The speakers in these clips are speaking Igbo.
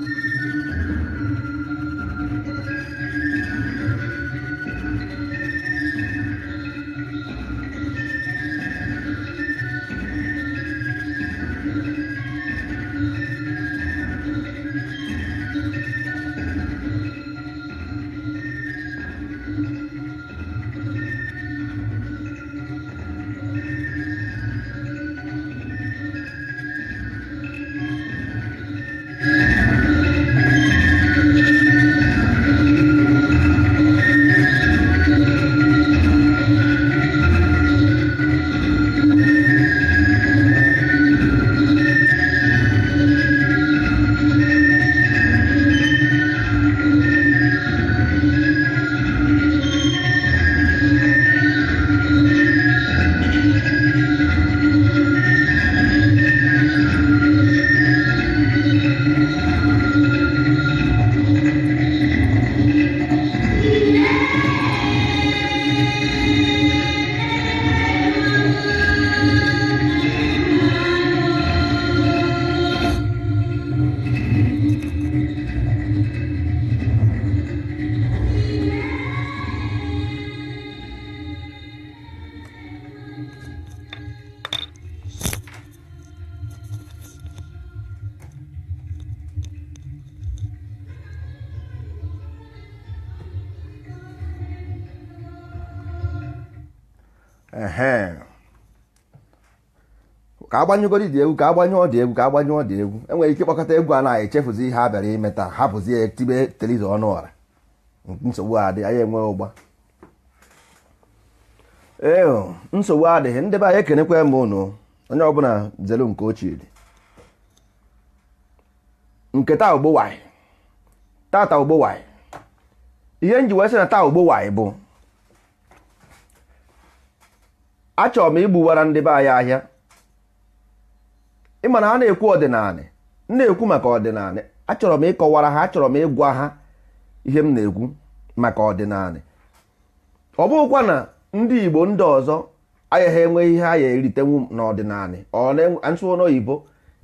a agbanyegoro dị egwu ka agbanye dị egwu ka agbanye dị egwu enwere ike ịkpọkọta egwu a na-echefuzi ihe a bịara imeta hapụzie tibe teliza ọnụ ọra nsogbu adị anyị enwe ụgba ee nsogbu adịghị ndị be anyị ekenekwa m ụnụ onye ọbụla zelu nke ochie dị nke taa ogbowaị tata ogbowaị ihe nji wee sị na taa ogbowaị bụ achọrọ m igbuwara ndị be anyị ahịa ịma na a na-ekwu ọdịnala na-ekwu maka ọdịnala achọrọ m ịkọwara ha achọrọ m ịgwa ha ihe m na-ekwu maka ọdịnalị ọ bụghịkwa na ndị Igbo ndị ọzọ agaghị enweghị ihe a ya eritenwu n'ọdịnala ọnsụo n'oyibo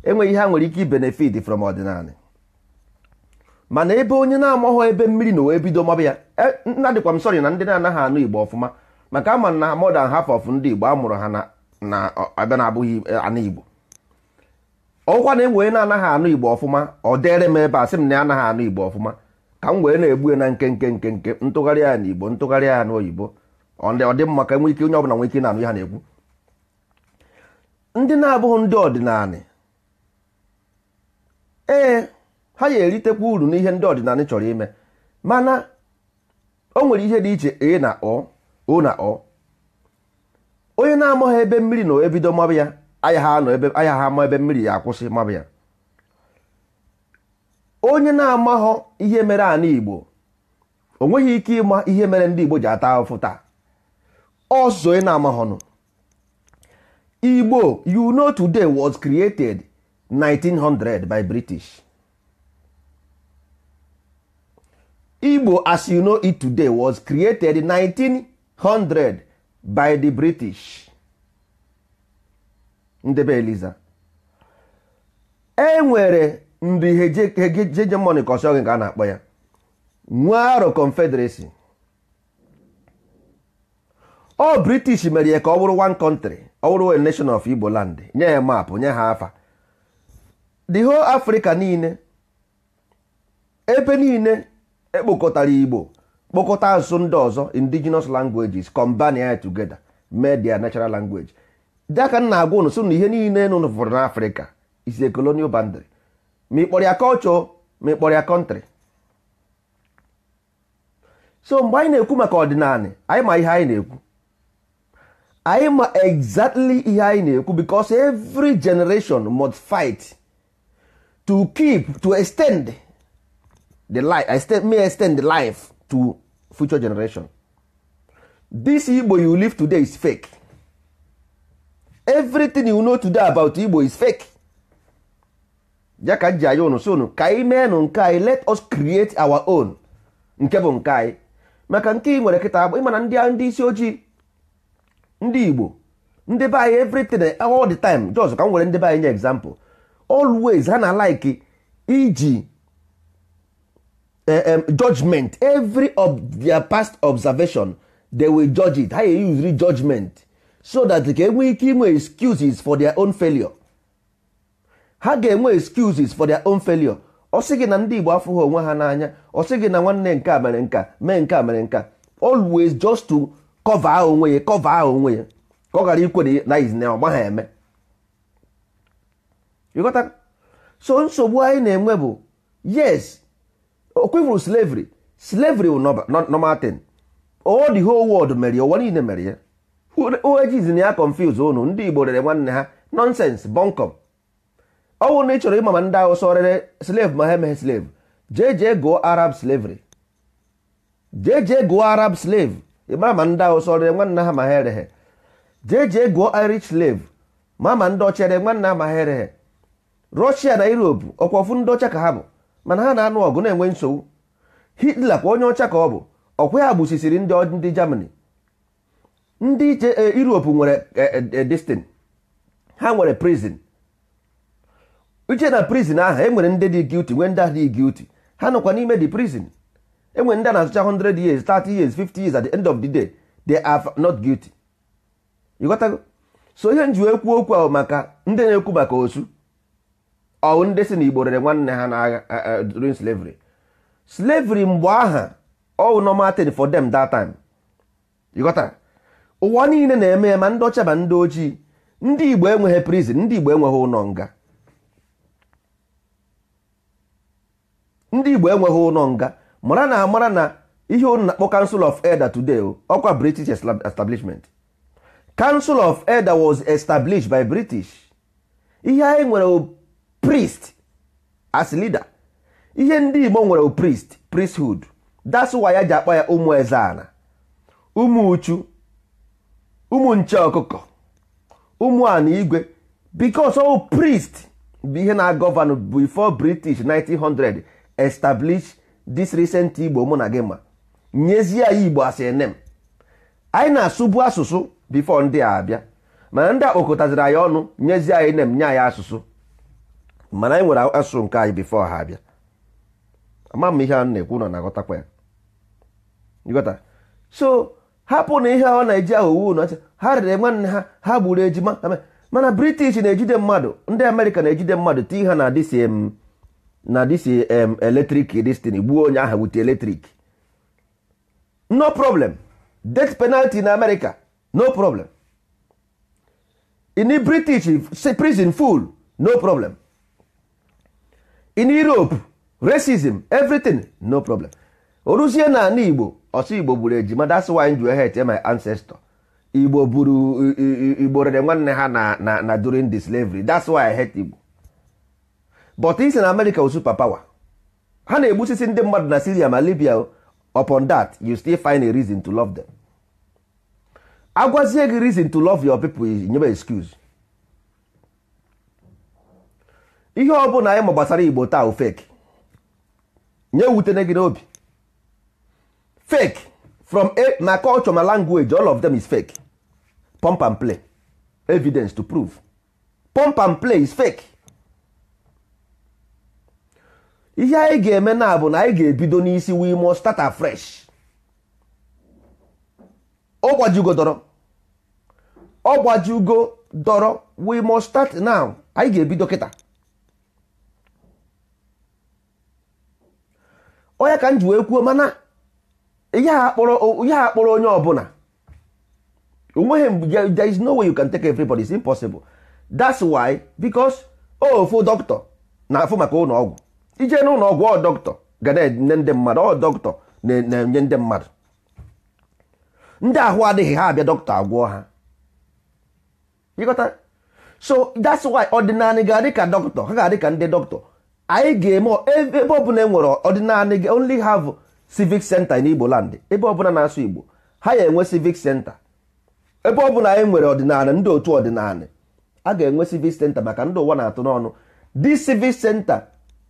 enweghị ihe ha nwere ike ibenefit from ọdịnalị mana ebe onye na-amaghị ebe mmiri na wee bido maba ya e, nna dịkwa m sọrị na ndị na-anaghị anụ Igbo ọfụma maka ama na modern half of ndị Igbo amụrụ ha na abịa na abụghị e, anụ Igbo ọkwa na enwee na-anaghị anụ igbo ọfụma ọ dere m ebe a sị m na anaghị anụ igbo ọfụma ka m wee na-egbue na nkenke nke ntụgharị ya na igbo ntụgharị ya na oyibo ọ dị mma ka enwe ike onye ọbụla nwee ike na-anụ ya na-ekwu ndị na-abụghị ndị ọdịnala ee ha ga-eritekwa uru n'ihe ndị ọdịnala chọrọ ime mana o nwere ihe dị iche e na ọ o na ọ onye na-amaghị ebe mmiri na ebido mmabụ ya anya ha ama ebe mmiri ya akwụsị mabụ ya onye na-amaghọ ihe mere ana igbo o nweghị ike ịma ihe mere ndị igbo ji ata afụfụ taa ọzọ ị na amahọnụ igbo you know today was created 1900 by british igbo as you know it today was created 1900 by the british ndebe enwere eliza e nwere ndị hegemony ka ọsọ ka a na-akpọ ya nwaro confederacy ọ british mere ya ka ọ bụrụ one country ọ bụrụ nation of igbo land nye ya maapụ nye ha afa the whole africa niile ebe niile ekpokọtara igbo kpokọta asụsụ ndị ọzọ indigenous languages combine ya together media their natural language Daka m na-agwa ụnụ na ihe niile nụ fụrụ is isi colonial boundary ma ị ya culture ma ya country so mgbe anyị na-ekwu maka ọdịnala anyị ma ihe anyị na-ekwu anyị ma exactly ihe anyị na-ekwu because every generation must fight to keep to extend the life extend, may extend the life to future generation this Igbo you live today is fake everything you know today about igbo is fake ya ka ji anya ụnụ si ụnụ ka anyị mee nụ nke anyị let us create our own nke bụ nke anyị maka nke ị nwere kịta ịma na ndị isi ojii ndị igbo ndị be anyị everything all the time just ka m nwere ndị be anyị nye example always ha na like iji eh, judgment every of their past observation they will judge it ha e usiri judgment so that ka enwee ike inwe excuses for their own failure ha ga-enwe excuses for their own failure ọ sị gị na ndị Igbo afụghị onwe ha n'anya ọ sị gị na nwanne nke a mere nka mee nke a mere nka always just to cover onwe ya cover onwe ya ka ọ ghara ikwere na ọgba ha eme ịghọta so nsogbu anyị na-enwe bụ yes okwevuru slavery slavery wụ normal thing the whole world mere ya ụwa niile mere ya ojiz na ya confuse unu ndị igbo rere nwanne ha nọnsens bọnkọm ọ bụrụ na ị chọrọ ịma ma ndị ahụ rere slave ma ha emeghe slave jeje jee gụọ arab slavery jee jee gụọ arab slave ị ma ndị ahụ rere nwanne ha ma ha ereghe jee jee gụọ irish slave ma ma ndị ọcha nwanne ha ma ha ereghe rọshia na europe ọkwa ofu ndị ọcha ka ha bụ mana ha na-anụ ọgụ na-enwe nsogbu hitler kwa onye ọcha ka ọ bụ ọkwa ya gbusisiri ndị ndị germany ndị iche eh, Europe nwere eh, eh, destin ha nwere prison uche na prison ahụ enwere ndị dị guilty nwee ndị ahụ dị guilty ha nọkwa n'ime the prison enwere ndị a na-asụcha 100 years 30 years 50 years at the end of the day they are not guilty ịghọtago so ihe nji ekwu okwu ahụ maka ndị na-ekwu maka osu ọwụ ndị si na igbo rere nwanne ha n'agha during slavery slavery mgbe aha ọwụ normal thing for them that time ịghọtara ụwa niile na-eme ya ma ndị ọcha ma ndị ojii ndị igbo enweghị prizin ndị igbo enweghị ụlọ nga ndị igbo enweghị ụlọ nga mara na amara na ihe unu na-akpọ kansụl of elder today ọkwa british establishment Kansụl of elder was established by british ihe anyị nwere priest as leader ihe ndị igbo nwere priest priesthood that's ya ji akpa ya ụmụ ezeana ụmụ uchu ụmụ nche ọkụkọ ụmụ ana igwe because all priest bụ ihe na-agọvanụ before british 1900 establish dis recent igbo mụ na gị ma nyezie ya igbo asị nem anyị na-asụbu asụsụ bifo ndị a abịa mana ndị akpọkọtaziri anyị ọnụ nyezie anyị nem nye anyị asụsụ mana anyị nwere asụsụ nke anyị bifo ha abịa ama m ihe na-ekwu na ya hapụ na ihe ọ na-eji ahụ uwe ụnọcha ha rere nwanne ha ha gburu ejima mana british na-ejide mmadụ ndị amerịka na-ejide mmadụ tii ha na dịsị um, na dịsị um, eletrik destin gbuo onye aha wute eletrik no problem death penalty na amerịka no problem ini british prison full no problem in europe racism everything no problem oruzie na igbo ọsọ igbo buru ejima that's why m ji my ancestor igbo buru igbo rere nwanne ha na na na during the slavery that's why i hate igbo but isi na america super power ha na-egbusisi ndị mmadụ na syria ma libya upon that you still find a reason to love them agwazie gị reason to love your people nyebe excuse ihe ọ bụla anyị ma gbasara igbo taa nye wutene gị n'obi fake from a my culture my language all of them is fake pump and play evidence to prove pump and play is fake ihe anyị ga-eme na bụ na anyị ga-ebido n'isi we must start afresh ọ dọrọ ọ dọrọ we must start now anyị ga-ebido kịta onye ka m ji wee kwuo mana ihe a kpọrọ onye ọbụla onweghị there is no way you can take everybody it's impossible that's why because ofu dọkịta na-afụ maka ụlọ ọgwụ ije n'ụlọ ọgwụ ọ dọkịta ga na-enye ndị mmadụ ọ dọkịta na-enye ndị mmadụ ndị ahụ adịghị ha abịa dọkịta agwọ ha so that's why ọdịnala ga-adị ka dọkịta ha ga-adị ka ndị dọkịta anyị ga-eme ebe ọ bụla enwere ọdịnala only have civic center n'Igbo land ebe ọbụla na-asụ Igbo ha ya enwe civic center ebe ọbụla anyị nwere ọdịnala ndị otu ọdịnala a ga-enwe civic center maka ndị ụwa na-atụ n'ọnụ di civic center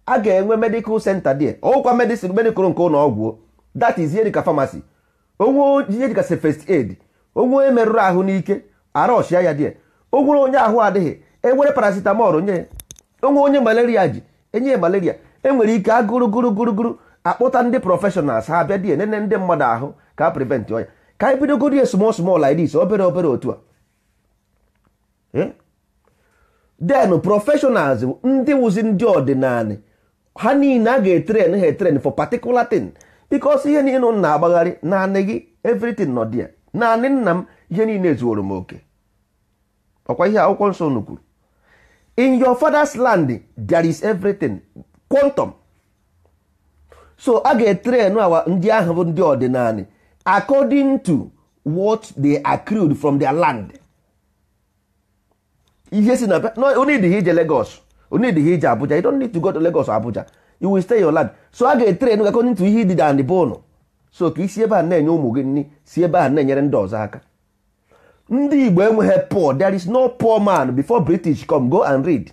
a ga-enwe medical center dị ọgwụkwa medicine medical nke ụlọ ọgwụ that is ihe dịka pharmacy onwe ihe dịka first aid onwe merụrụ ahụ n'ike arọshịa ya dị onwere onye ahụ adịghị enwere paracetamol nye onwe onye malaria ji enye malaria enwere ike agụrụ gụrụ gụrụ gụrụ akpụta ndị prọfeshọnals ha abịa die nene ndị mmadụ ahụ ka a prevent ọnya ka anyị bidogodi small small like this obere obere otu a eh? then prọfeshọnals ndị wụzi ndị ọdịnala ha niile a ga-etren ha etren for particular thing because ihe niile m na-agbagharị naanị gị everything nọ dị naanị nna m ihe niile zuoro m oke ọkwa ihe akwụkwọ nsọ nukwuru in your father's land there is everything quantum so a ga-etrenu awa ndị ahụ bụ ndị ọdịnala according to what they accrued from their land ihe si na onidịghị ije Lagos onidịghị ije Abuja you don't need to go to Lagos Abuja you will stay your land so a ga-etrenu according to ihe dịda ndị bụnụ so ka isi ebe a na-enye ụmụ gị nri si ebe a na-enyere ndị ọzọ aka ndị Igbo enweghị poor there is no poor man before British come go and read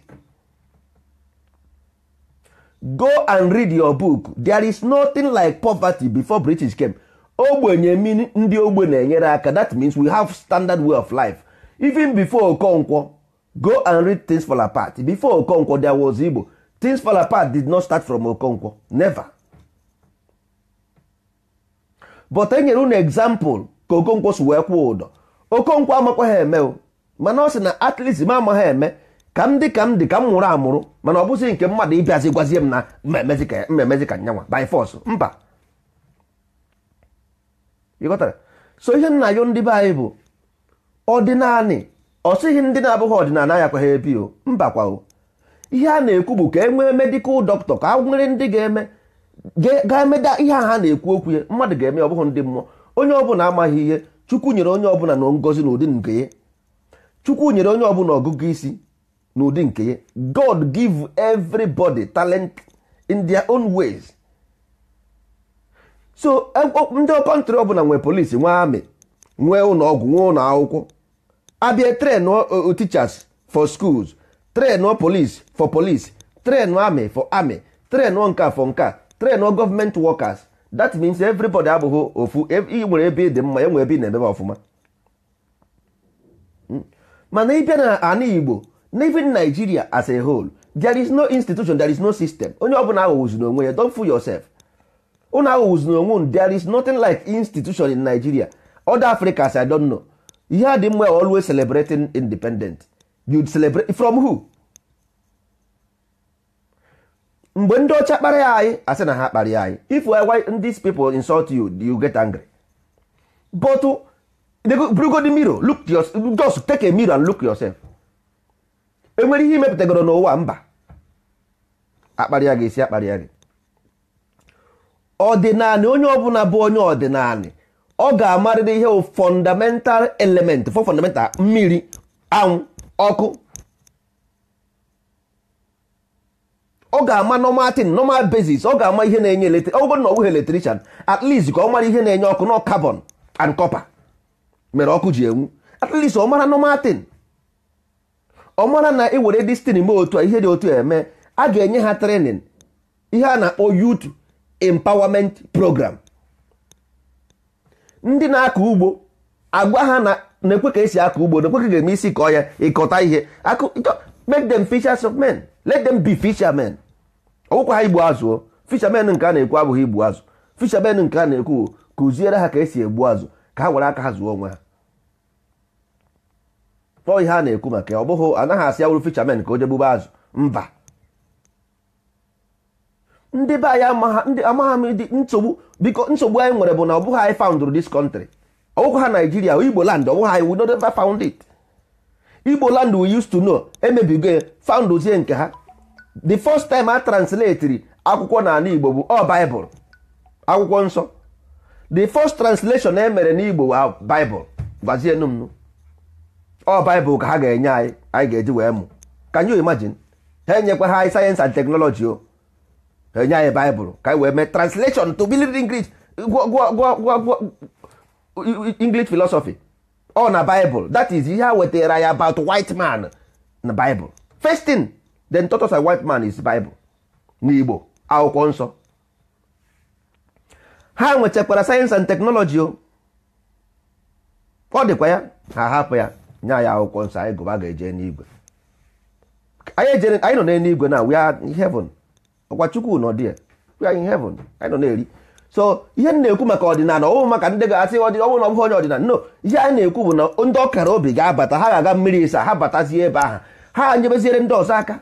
go and read your book there is nothing like poverty before british came ogbenye mean ndị ogbe na-enyere aka that means we have standard way of life even before okonkwo go and read things fall apart before okonkwo there was igbo things fall apart did not start from okonkwo never but enyere unu example ka okonkwo si wee kwụ ụdọ okonkwo amakwa ha eme mana ọ sị na atleast ime ma ama eme ka m dị ka m dị ka m nwụrụ amụrụ mana ọ bụsị nke mmadụ ịbịazi gwazie m na mmemezi ka nyanwa by force mba ịghọtara so ihe nna yo ndị be anyị bụ ọdịnanị ọ sịghị ndị na-abụghị ọdịnala ya kwa ha ebi o mba kwa o ihe a na-ekwu bụ ka e nwee medikal dọkịta ka nwere ndị ga-eme ga-emeda ihe a ha na-ekwu okwu ya mmadụ ga-eme ọ bụghị ndị mmụọ onye ọbụla amaghị ihe chukwu nyere onye ọbụla na ngozi na ụdị nke ya chukwu nyere onye ọbụla ọgụgụ isi n'ụdị nke ya god give everybody talent in their own ways so e, ndị kọntrị ọbụla nwee polisi nwee amị nwee ụlọ nwee ụlọ akwụkwọ abịa tren teachers for schools tren police for police tren amị for amị tren nka for nka tren gọọmenti workers that means everybody abụghị ofu ị e, nwere ebe dị mma enwe ebe ị na-emebe ọfụma hmm. mana ịbịa na ana igbo n'even Nigeria as a whole there is no institution there is no system onye ọbụla aghọwụzi n'onwe ya don't fool yourself unu aghọwụzi n'onwe unu there is nothing like institution in Nigeria other Africans I don't know ihe a dị mma always celebrating independent you celebrate from who mgbe ndị ọcha kparịa anyị asị na ha kparịa anyị if why these people insult you you get angry but go the mirror look just take a mirror and look yourself enwere ihe imepụtagoro n'ụwa mba akparịa gị esi akparịa gị ọdịnanị onye ọbụla bụ onye ọdịnali ọ ga-amarịrị ihe fọndamental element fọ fọndamental mmiri anwụ ọkụ ọ ga-ama nọmatin ọ ga-ama ihe na-enye na ọ ka ọ mara ihe na-enye ọkụ nọ carbon and copper mere ọkụ ji enwu ọ mara ọ mara na ị were destin mee otu a ihe dị otu eme a ga-enye ha trenin ihe a na-akpọ youth empowerment program ndị na-akọ ugbo agwa ha na na-ekwe ka esi akọ ugbo na-ekwe ka ga-eme isi kọọ ya ịkọta ihe make them fishers of men let them be fishermen ọgwụkwa ha igbu azụ fishermen nke a na-ekwu abụghị igbu azụ fishermen nke a na-ekwu kụziere ha ka esi egbu azụ ka ha were aka ha zụọ onwe ha ọ ihe a na-ekwu maka ya ọ bụghị anaghị asị ya wụrụ fisherman ka o jegbube azụ mba ndị be anyị amagha m dị nsogbu biko nsogbu anyị nwere bụ na ọ bụghị anyị foundụrụ dis kọntrị ọ bụghị ha Naijiria Igbo land ọ bụghị anyị we don't ever found it Igbo land we used to know emebigo foundụzie nke ha the first time a translatiri akwụkwọ n'ala Igbo bụ ọ oh, Bible akwụkwọ nsọ the first translation emere n'Igbo bụ ah, Bible gwazienụ m ọ baịbụl ka ha ga-enye anyị anyị ga-eji wee mụ can you imagine ha enyekwa ha anyị sayensị and teknọlọji o ha enye anyị baịbụl ka anyị wee mee translation to believe English English philosophy ọ na baịbụl that is ihe ha wetara ya about white man na baịbụl first thing then taught us white man is bible na igbo akwụkwọ nsọ ha nwechakwara sayensị and teknọlọji o ọ dịkwa ya ha hapụ ya nya ya akwụkwọ nsọ anyị gụba ga-eje n'igwe anyị nọ n'eluigwe na we are in heaven ọkwa chukwu nọ dị we are in heaven anyị nọ na-eri so ihe m na-ekwu maka ọdịnala ọwụ maka ndị ga-asị ọnwụ na ọbụghị onye ọdịnala no ihe anyị na-ekwu bụ na ndị ọkara obi ga-abata ha ga-aga mmiri ịsa ha batazie ebe ahụ ha nyebeziere ndị ọzọ aka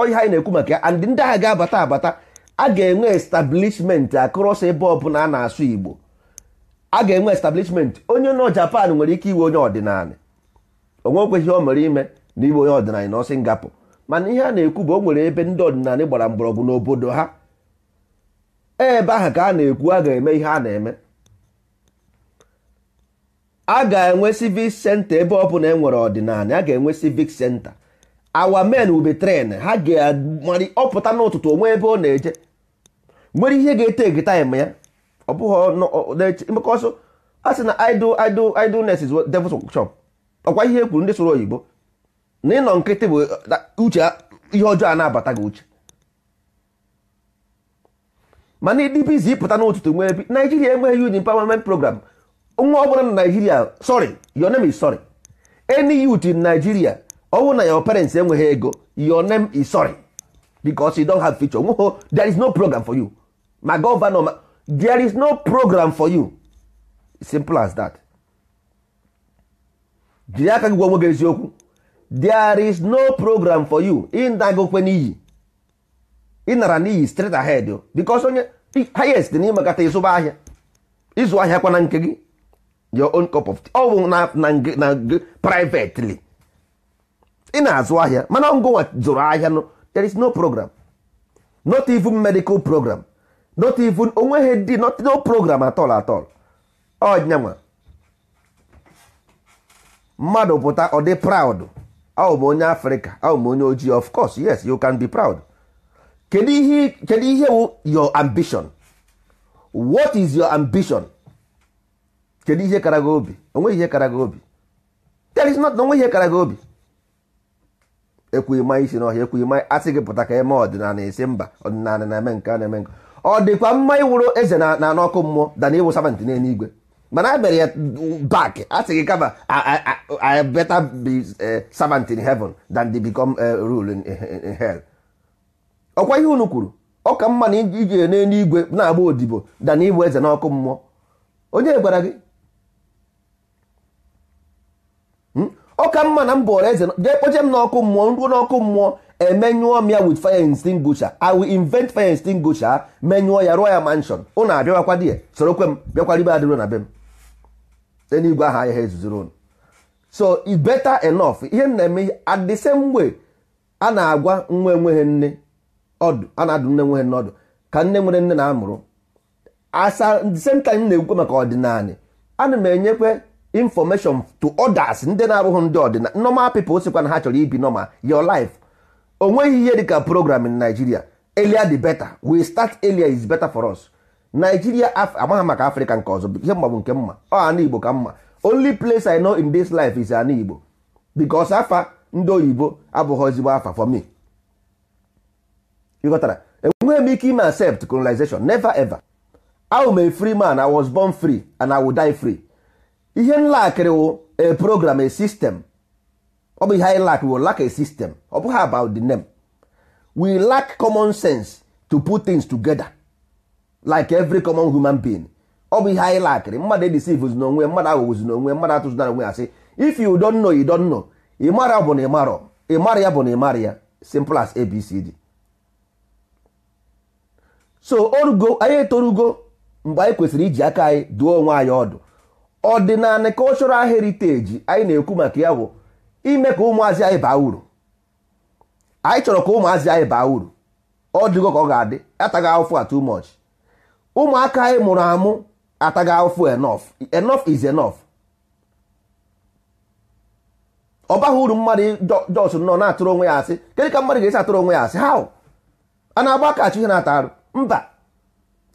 oyihe anyị na-ekwu maka ya and ndị agha ga-abata abata a ga-enwe establishment akụrọsọ ebe ọbụla a na-asụ igbo a ga-enwe establishment onye nọ Japan nwere ike iwe onye ọdịnala onwe ihe o mere ime na iwe onye ọdịnala nọ Singapọ mana ihe a na-ekwu bụ o nwere ebe ndị ọdịnala gbara mgbọrọgwụ n'obodo ha ebe ahụ ka a na-ekwu a ga-eme ihe a na-eme a ga-enwe civic center ebe ọ bụla enwere ọdịnala a ga-enwe civic center awa men ube tren ha ga-amarị ọpụta n'ụtụtụ onwe ebe ọ na-eje nwere ihe ga-ete egetaim ya ọ bụghị maka ọsọ a sị na idol idol idleness is devil's shop ọkwa ihe e kwuru ndị soro oyibo na ịnọ nkịtị bụ uche ihe ọjọọ a na-abata gị uche mana ịdị bizi ịpụta n'ụtụtụ nwere bi naijiria enweghị youth empowerment program nwa ọ bụla na naijiria sorry your name is sorry any youth in nigeria ọ na your parents enweghị ego your name is sorry because you don't have future nweghị there is no program for you ma gọvanọ there is no program for you simple as that jiri aka gị gwa onwe gị eziokwu there is no program for you ịnagokwe n'iyi ịnara n'iyi straight ahead o. because onye highest na ịmakata ịzụba ahịa ịzụ ahịa na nke gị your own cup of tea ọ bụ na privately ị na-azụ ahịa mana ngụnwa zụrụ ahịa no there is no program not even medical program not even onweghị dị not no program at all at all ọnyanwa mmadụ pụta ọ dị proud ahụ onye afrịka ahụ onye ojii of course yes you can be proud kedu ihe kedu ihe wụ your ambition what is your ambition kedu ihe kara gị obi onweghị ihe kara gị obi there is not onwe ihe kara gị obi ekwughị ma isi n'ọhịa ekwughị ma asị gị pụta ka eme ọdịnala esi mba ọdịnala na-eme nke a na-eme nke ọ dịkwa mma ịwụrụ eze na na n'ọkụ mmụọ dana ịwụ savant igwe mana a e mere ya bak a sị gị kama I better be eh, servant in heaven than to become eh, rule in hell ọkwa ihe unu kwuru ọ mma na iji igwe na-agba odibo dana ịbụ eze n'ọkụ mmụọ onye gwara gị hmm? ọ mma na m ọrụ eze jee kpoche n'ọkụ mmụọ nruo n'ọkụ mmụọ emenyụọ m ya with fire extinguisher i will invent fire extinguisher menyụọ ya rụọ ya manshon ụnụ abịawakwa di ya sorokwe m bịakwara ibe adịro na be m enigwe aha ahịa ha ezuziri so i better enough ihe m na-eme at the same way a na-agwa nwa enweghị nne ọdụ a na-adụ nne nweghị nne ọdụ ka nne nwere nne na-amụrụ asa the same time na-ekwukwe maka ọdịnala ana m enyekwe information to others ndị na-abụghị ndị ọdịnala normal people sikwa na ha chọrọ ibi normal your life nweghị ihe dịka program in Nigeria earlier the better we start earlier is better for us Nigeria amaghị maka Africa nke ọzọ ihe mma nke mma ọ ana Igbo ka mma only place I know in this life is ana Igbo because afa ndị oyibo abụghị ezigbo afa for me ịghọtara enweghị m ike ime accept colonization never ever ahụ m free man I was born free and I will die free ihe nlakịrị wụ a program a system ọ bụ ihe anyị lack we lack a system ọ bụghị about the name we lack common sense to put things together like every common human being ọ bụ ihe anyị lakịrị mmadụ edisivuzi n'onwe mmadụ aghụghụzi n'onwe mmadụ atụzụdara onwe asị if you don't know you don't know ịmara bụ na ịmarọ ịmara ya bụ na ịmara ya simple as abcd so orugo anyị etorugo mgbe anyị kwesịrị iji aka anyị duo onwe anyị ọdụ ọdịnala cultural heritage anyị na-ekwu maka ya bụ ime ka ụmụazị anyị baa uru anyị chọrọ ka ụmụazị anyị baa uru ọ dịgo ka ọ ga-adị ataghị ahụfụ a much ụmụaka anyị mụrụ amụ ataghị ahụfụ enough enough is enough ọ baghị uru mmadụ jos nọ na-atụrụ onwe ya asị kedu ka mmadụ ga-esi atụrụ onwe ya asị ha a na-agba akachi ihe na-ata arụ mba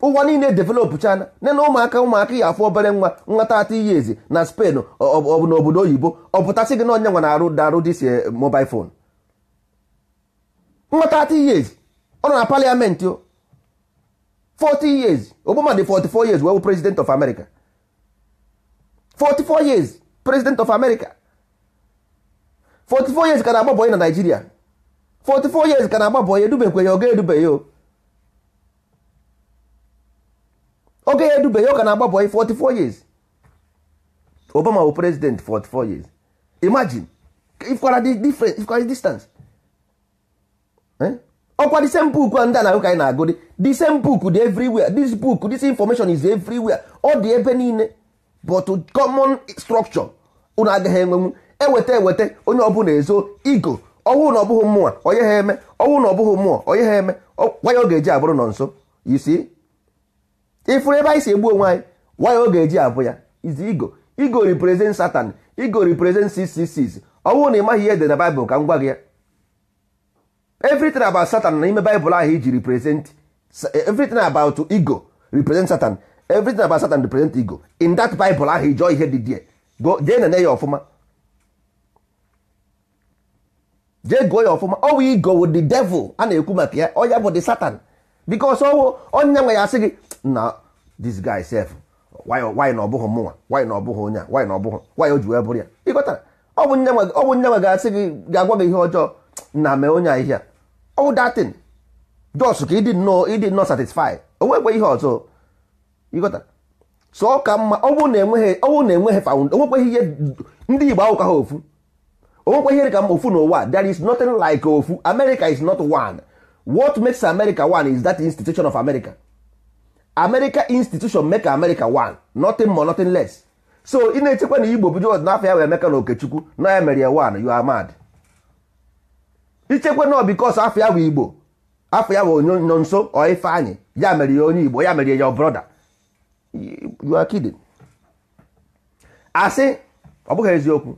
ụwa niile develop chana nne na ụmụaka ụmụaka ya afọ obere nwa nwata ata iyi ezi na Spain ọ n'obodo oyibo ọ pụtasị gị na onye nwa na-arụ darụ dis eh, mobile phone nwata ata iyi ezi ọ nọ na parliament o 40 years Obama dị 44 years wee president of America 44 years president of America 44 years ka na-agbabọ na Nigeria 44 years ka na-agbabọ ya edubekwe ya ọ ga-edube ya o oge ya edube ya ọ ka na-agba 44 years Obama bụ president 44 years imagine if dị different ikwara distance eh? ọkwa the same book ndị a na-ahụ ka anyị na-agụ the same book dị everywhere this book this information is everywhere ọ dị ebe niile but common structure unu agaghị enwenwu eweta eweta onye ọbụla ezo igo ọwụ na ọbụghị mmụọ onye ha eme ọwụ na ọbụghị mmụọ onye ha eme kwa ya ọ ga-eji abụrụ nọ nso you see ifuru ebe anyị si egbu onwe anyị waya ọ ga-eji abụ ya izi igo igo represent satan igo represent ccs ọ na ị maghị ihe dị na baịbụl ka m gwa gị ya everything about satan na ime baịbụl ahụ iji represent everything about ego represent satan everything about satan represent ego in that baịbụl ahụ ijọọ ihe dị die jee nene ya ọfụma jee gụọ ya ọfụma ọwa igo wụ the devil a na-ekwu maka ya ọ ya bụ the satan bikos ọwụ onye nwe ya asị gị na this guy sef why na ọ bụghị mụnwa why na ọbụghị onye a why na ọbụghị why o ji wee bụrụ ya ịghọtara ọ bụ nne nwe ga-asị gị ga-agwa gị ihe ọjọọ na mee onye ahịhịa ọwụ datin jos ka ịdị nnọọ ịdị nnọọ satisfi o ihe ọzọ ịghọtara so ka mma ọwụ na-enweghị ọwụ na-enweghị fawund onwekweghị ihe ndị igbo ahụka ha ofu onwekwe ihe dị ka ofu n'ụwa there is nothing like ofu America is not one what makes america one is that institution of america america institution make america one nothing more nothing less so ị na-echekwa na igbo bido ọdịnafọ ya wee emeka na okechukwu na ya mere ya one you are mad ichekwa na because afọ ya bụ igbo afọ ya bụ nọ nso ọ ya mere ya onye igbo ya mere ya brother you are kidding asị ọ bụghị eziokwu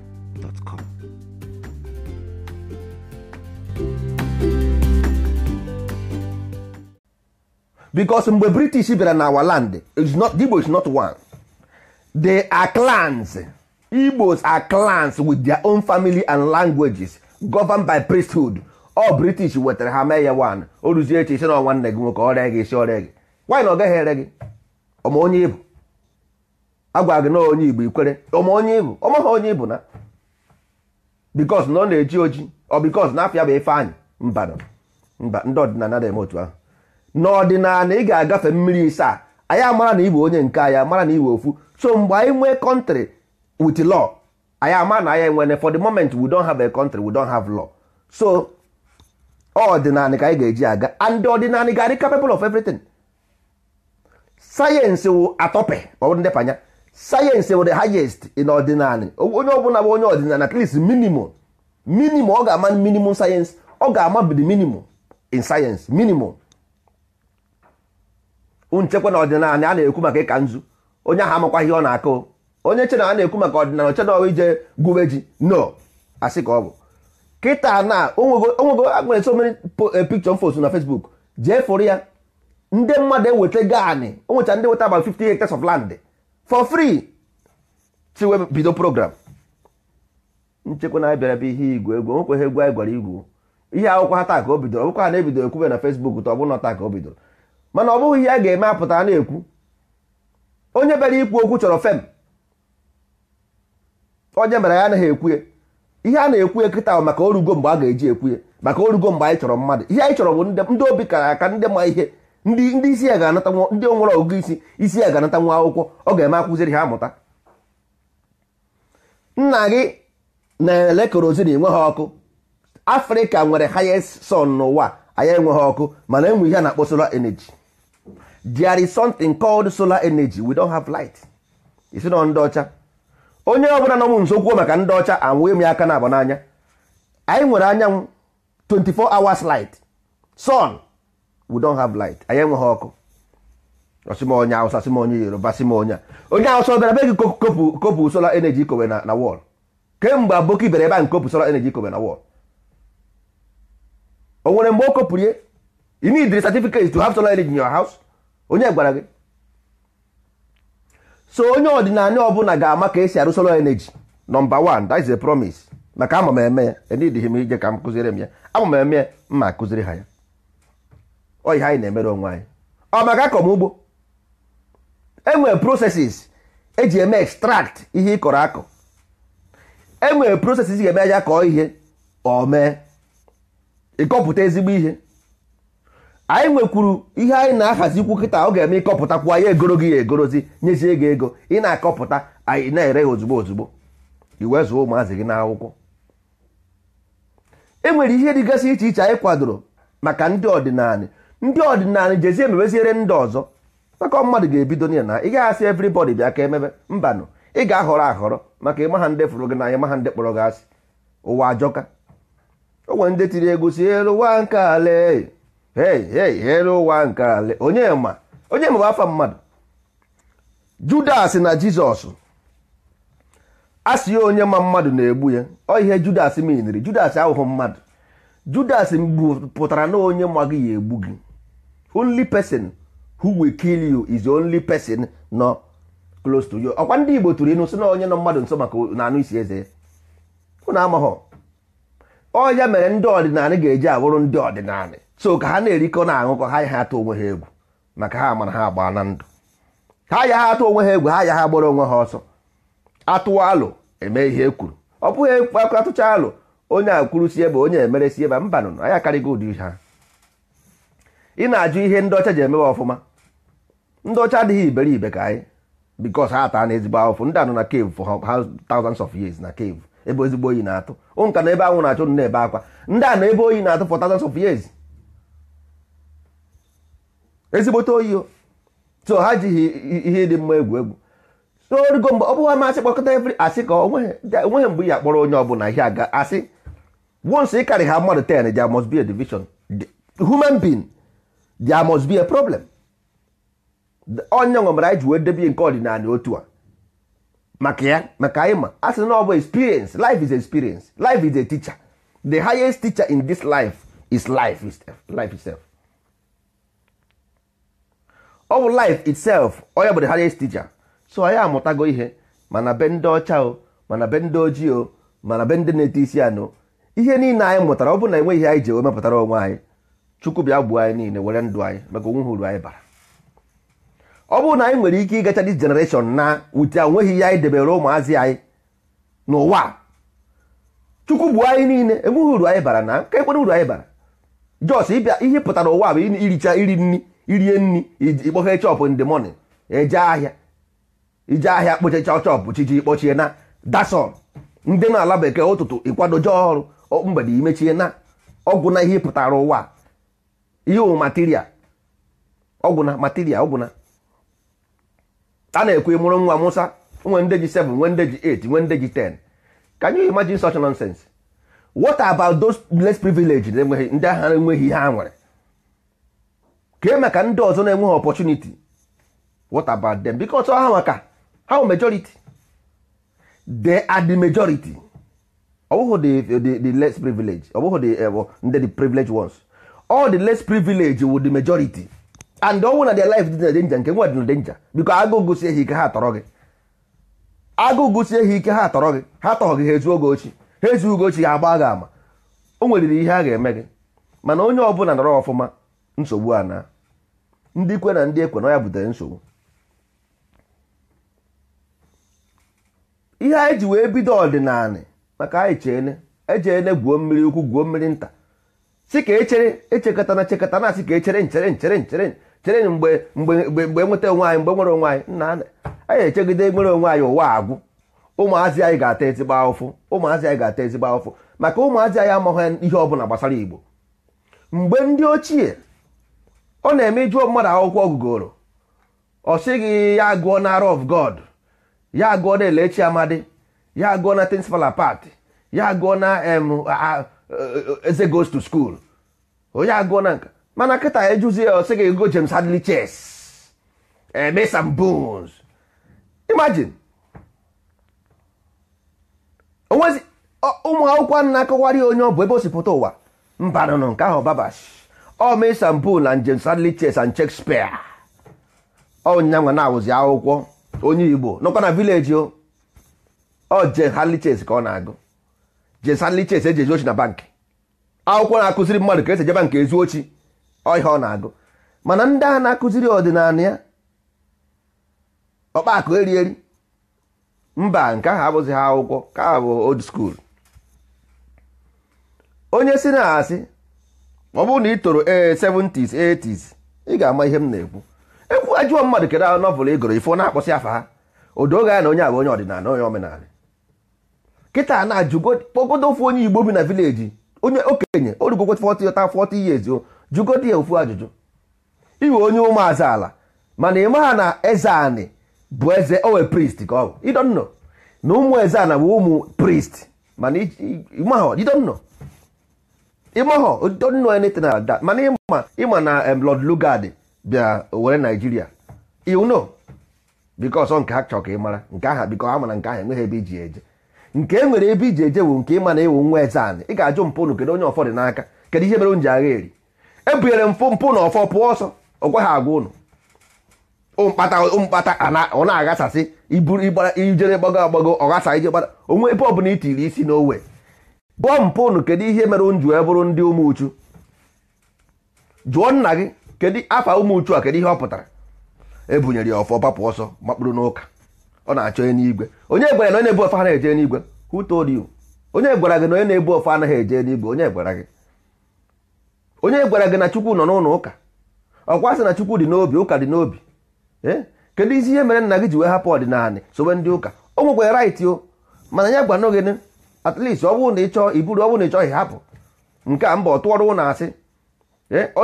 bicos mgbe british bịara na our land igbo is not one they are clans igbos are clans with their own family and languages governed by priesthood all british wetara ha mee ya one o ruzie eche isi na nwanne gị nwoke ọrịa gị isi ọrịa gị why na ọ gaghị ere gị ọma onye ibu agwa gị na onye igbo ikwere ọma onye ibu onye ibu na bikos na ọ na-eji oji ọ bikos na afịa bụ Ifeanyị mba mba ndị ọdịnala dị eme otu ahụ n'ọdịnala ị ga-agafe mmiri isaa anyị amara na iwe onye nke anyị mara na iwe ofu so mgbe anyị nwee kọntrị with law anyị ama na anyị enwere for the moment we don have a country we don have law so ọdịnala ka anyị ga-eji aga and ọdịnala ga-adị capable of everything sayensị wụ atọpe ọ bụrụ ndepanya sayensị bụ the highest in ọdịnala onye ọbụla bụ onye ọdịnala at least minimum minimum ọ ga-ama minimum sayensị ọ ga-ama the minimum in sayensị minimum nchekwa na ọdịnala a na-ekwu maka ịka nzu onye ahụ amakwa ihe ọ na-akụ onye chena a na-ekwu maka ọdịnala ochena ọwa ije gụwa ji no asị ka ọ bụ kịta na onwego agbere so many eh, picture fos na Facebook jee fụrụ ya ndị mmadụ eweta gaanị o nwecha ndị weta about 50 hectares of land for free chiwe bido program nchekwa na abịara ihe igwe egwu ihe egwu anyị gwara igwu ihe akwụkwọ ha taa ka o bidoro ọbụkwa ha na-ebido ekwube na e fesbuk ta ọ na taa ka o bidoro mana ọ bụghị ihe a ga-eme apụta na-ekwu onye bịara ikwu okwu chọrọ fem onye mere ya anaghị ekwuye ihe a na-ekwuye kịta maka orugo mgbe a ga-eji ekwuye maka orugo mgbe anyị chọrọ mmadụ ihe anyị chọrọ bụ ndị obi kara aka ndị ma ihe ndị ndị isi ya ga-anata ndị onwere ọgụgụ isi isi ya ga-anata nwa akwụkwọ ọ ga-eme akụziri ha amụta nna gị na-ele kerozin enwe ha ọkụ afrịka nwere highest sun n'ụwa anyị enweghị ọkụ mana enwe ihe a na-akpọ solar energy there is something called solar energy we don't have light isi nọ ndị ọcha onye ọbụla nọ m nso maka ndị ọcha anwụghị m ya aka na-aba n'anya anyị nwere anyanwụ 24 hours light sun we don't have light anyị enweghị ọkụ ọsịmonye awụsa sịmonye yoruba sịmonye onye awụsa bịara be gị kopu kopụ solar energy kowe na na wọl kemgbe aboki bịara ebe a nkopụ solar energy kowe na wọl o nwere mgbe o kopụrụ ya you need the certificate to have solar energy in your house onye gwara gị so onye ọdịnala ọbụla ga-ama ka esi arụ solar energy nọmba 1 that is a promise maka ama m eme ya enidghị m ije ka m kụziere m ya ama m eme ya mma akụziri ha ya ọ ihe anyị na-emere onwe anyị ọ maka akọ m ugbo enwere prosesis eji eme extract ihe ị kọrọ akọ enwere prosesis ga-eme aja kọọ ihe ọ mee ịkọpụta ezigbo ihe anyị nwekwuru ihe anyị na-ahazikwu kịta ọ ga-eme ịkọpụtakwu anyị egoro gị ya egorozi nyezie gị ego ị na-akọpụta anyị na-ere ya ozugbo ozugbo iwe zụọ ụmụazị gị n'akwụkwọ e nwere ihe dịgasị iche iche anyị kwadoro maka ndị ọdịnala ndị ọdịnala jezie emebeziere ndị ọzọ maka mmadụ ga-ebido n'ihe na ị ga-asị evrịbọdị bịa ka emebe mbanụ ị ga-ahọrọ ahọrọ maka ịmaha ndị fụrụ gị n'anya maha ndị kpọrọ gị asị ụwa ajọka o nwere ndị tiri egwu si elu ụwa nke ale elu ụwa nke onye ma onye ma afọ mmadụ judas na jizọs asị onye ma mmadụ na-egbu ya ọ ihe judas miniri judas ahụhụ mmadụ judas pụtara na onye ma gị ya egbu gị only person who will kill you is the only person nọ close to you ọkwa ndị Igbo tụrụ inu na onye nọ mmadụ nso maka na anụ isi eze unu amaghọ ọ ya mere ndị ọdịnala ga-eji awụrụ ndị ọdịnala so ka ha na-erikọ na aṅụkọ ha ya atụ onwe ha egwu maka ha mara ha agba na ndụ ha ya ha atụ onwe ha egwu ha ya ha gbara onwe ha ọsọ atụwa alụ eme ihe ekwuru ọ bụghị atụcha alụ onye akwuru si ebe onye emere si ebe mbanụ anyị karịgo ụdị ha ị na-ajụ ihe ndị ọcha ji emewe ọfụma ndị ọcha adịghị iberibe ka anyị because ha taa na ezigbo ahụfụ ndị anọ na cave for ha thousands of years na cave ebe ezigbo oyi na-atụ ụnka na ebe anwụ na-achụ na ebe akwa ndị a na ebe oyi na-atụ for thousands of years ezigbote oyi so ha jighị ihe dị mma egwu egwu so origo mgbe ọ bụghị amasị kpọkọta every asị ka onweghị e, mgbe ya kpọrọ onye ọbụla ihe aga asị once ị karị ha mmadụ 10 there must be a division human being there must be a problem onye nwemara anyị ji wee debe nke ọdịnala otu a maka ya maka ịma, asị na ọ bụ experience life is experience life is a teacher the highest teacher in this life is life itself life itself ọ bụ life itself onye bụ the highest teacher so anyị amụtago ihe mana be ndị ọcha o mana be ndị ojii o mana be ndị na-ete isi anụ ihe niile anyị mụtara ọ bụ na enweghị ihe anyị ji wee mepụtara onwe anyị chukwu bịa gbuo anyị niile were ndụ anyị maka onwe uru anyị bara ọ bụrụ na anyị nwere ike ịgacha dis generation na wute nweghị ihe anyị debere ụmụazị anyị n'ụwa chukwu bụ anyị niile enweghị uru anyị bara na ekwere uru anyị bara jos ịbịa ihe pụtara ụwa bụ iricha iri nri irie nri ikpọhe chọpụ nde the morning eje ahịa ije ahịa kpochacha chọpụ chiji kpọchie na dason ndị na-ala bekee ụtụtụ ịkwado ọrụ mgbede imechie na ọgwụ na ihe pụtara ụwa ihe material ọgwụna material ọgwụna a na ekwu mụrụ nwa musa nwe ndeji 7 nwe ndeji 8 nwe ndeji 10 can you imagine such nonsense what about those less privileged enweghị ndị agha enweghị ihe ha nwere kee e maka ndị ọzọ na-enweghị opportunity what about them because ha maka ha wụ majority they are the majority ọ bụghị the, the, less privileged ọ bụghị the, uh, the privileged ones all the less privilege with the majority and ọnwụ na their life dị na danger nke nwa dị na danger biko agụụ gụsie ha ike ha atọrọ gị agụụ gụsie ha ike ha tọrọ gị ha tọghọ gị ha ezuo gị ochi ha ezuo gị ochi ha agba gị ama o nweriri ihe a ga-eme gị mana onye ọbụla nọrọ ọfụma nsogbu a na ndị kwe na ndị ekwe na ya butere nsogbu ihe anyị ji wee bido ọdịnala maka anyị cheene ejeene gwuo mmiri ukwu gwuo mmiri nta si ka echere echekọtana chekọta na asị ka echere nchere nchere nchere chere mgbe mgbe mgbe nweta onwe anyị mgbe nwere onwe anyị nna anyị echegide nwere onwe anyị ụwa agwụ ụmụazị anyị ga-ata ezigbo ahụfụ ụmụazị anyị ga-ata ezigbo ahụfụ maka ụmụazị anyị amaghị ihe ọ bụla gbasara Igbo mgbe ndị ochie ọ na-eme ịjụọ mmadụ akwụkwọ ọgụgoro ọ sịghị ya gụọ na Arọ of God ya gụọ na Elechi Amadi ya gụọ na Tinsfala Pat ya gụọ na eze eh, eh, eh, goes to school onye agụọ na nka mana kịta ejuzi ya ọsị gị go James Hadley chess eme some bones imagine onwezi ụmụ akwụkwọ na-akọwarị onye ọ bụ ebe o si pụta ụwa mba nọ nke ahụ babash ọ oh, mee some bones and James Hadley chess and Shakespeare ọnyanwa na-awụzi akwụkwọ onye Igbo nọkwa na vileji o oh, ọ James Hadley chess ka ọ na-agụ jesalicha ese eji ezuochi na bankị akwụkwọ na-akụziri mmadụ ka esi ejeba nke ezuochi ọhịa ọ na-agụ mana ndị a na-akụziri ọdịnala ya ọkpakụ eri eri mba nke ahụ abụghị ha akwụkwọ ka ha bụ old school onye si na asị ọ bụrụ na ị toro ee 70s 80s ị ga-ama ihe m na-ekwu ekwu ajụọ mmadụ kedu ahụ nọvụl ị gụrụ ifo na-akpọsị afa ha ga ya na onye abụ onye ọdịnala onye omenala kịta na kpọgodo ofu onye igbo bi na vileji onye okenye orugokwe 40 ta 40 years jụgodo ya ofu ajụjụ iwe onye ụmụazị ala mana ị maha na eze anị bụ eze owe priest ka ọ bụ idonno na ụmụ eze ana bụ ụmụ priest mana ịmahọ idonno ịmahọ idonno anything like mana ịma ịma na Lord Lugard bịa were Nigeria you know nke ha chọrọ ka ị mara nke aha biko ha mana nke ahụ enweghị ebe iji e eje nke e nwere ebe iji eje nke ịma na ewu nwa anị ị ga-ajụ mpụ unu kedu onye ọfọ dị n'aka kedu ihe mere m ji agha eri ebunyere mpụ mpụ na ọfọ pụọ ọsọ ọgwa ha agwa ụnụ mkpata mkpata ọ na-aghasasị iburu ijere gbago agbago ọghasa ije gbara onwe ebe ọbụla itiri isi n'owe bụọ mpụ unu kedu ihe mere m ji bụrụ ndị ụmụ uchu jụọ nna gị kedu afa ụmụ uchu a kedu ihe ọ pụtara ebunyere ya ọfọ papụ ọsọ makpụrụ n'ụka ọ na-achọ onye n'igwe onye gwara na onye ebu anaghị eje n'igwe who onye gwara gị na onye na-ebu ofe anaghị eje n'igwe onye gwara gị onye gwara gị na chukwu nọ n'ụlọ ụka ọkwa sị na chukwu dị n'obi ụka dị n'obi ee eh? kedu isi ihe mere nna gị ji wee hapụ ọdịnala sobe ndị ụka o nwekwa right o mana nya gwa n'oge at least ọ bụrụ na iburu ọ na ịchọghị hapụ nke a mba ọ tụọrọ ụlọ asị eh? ọ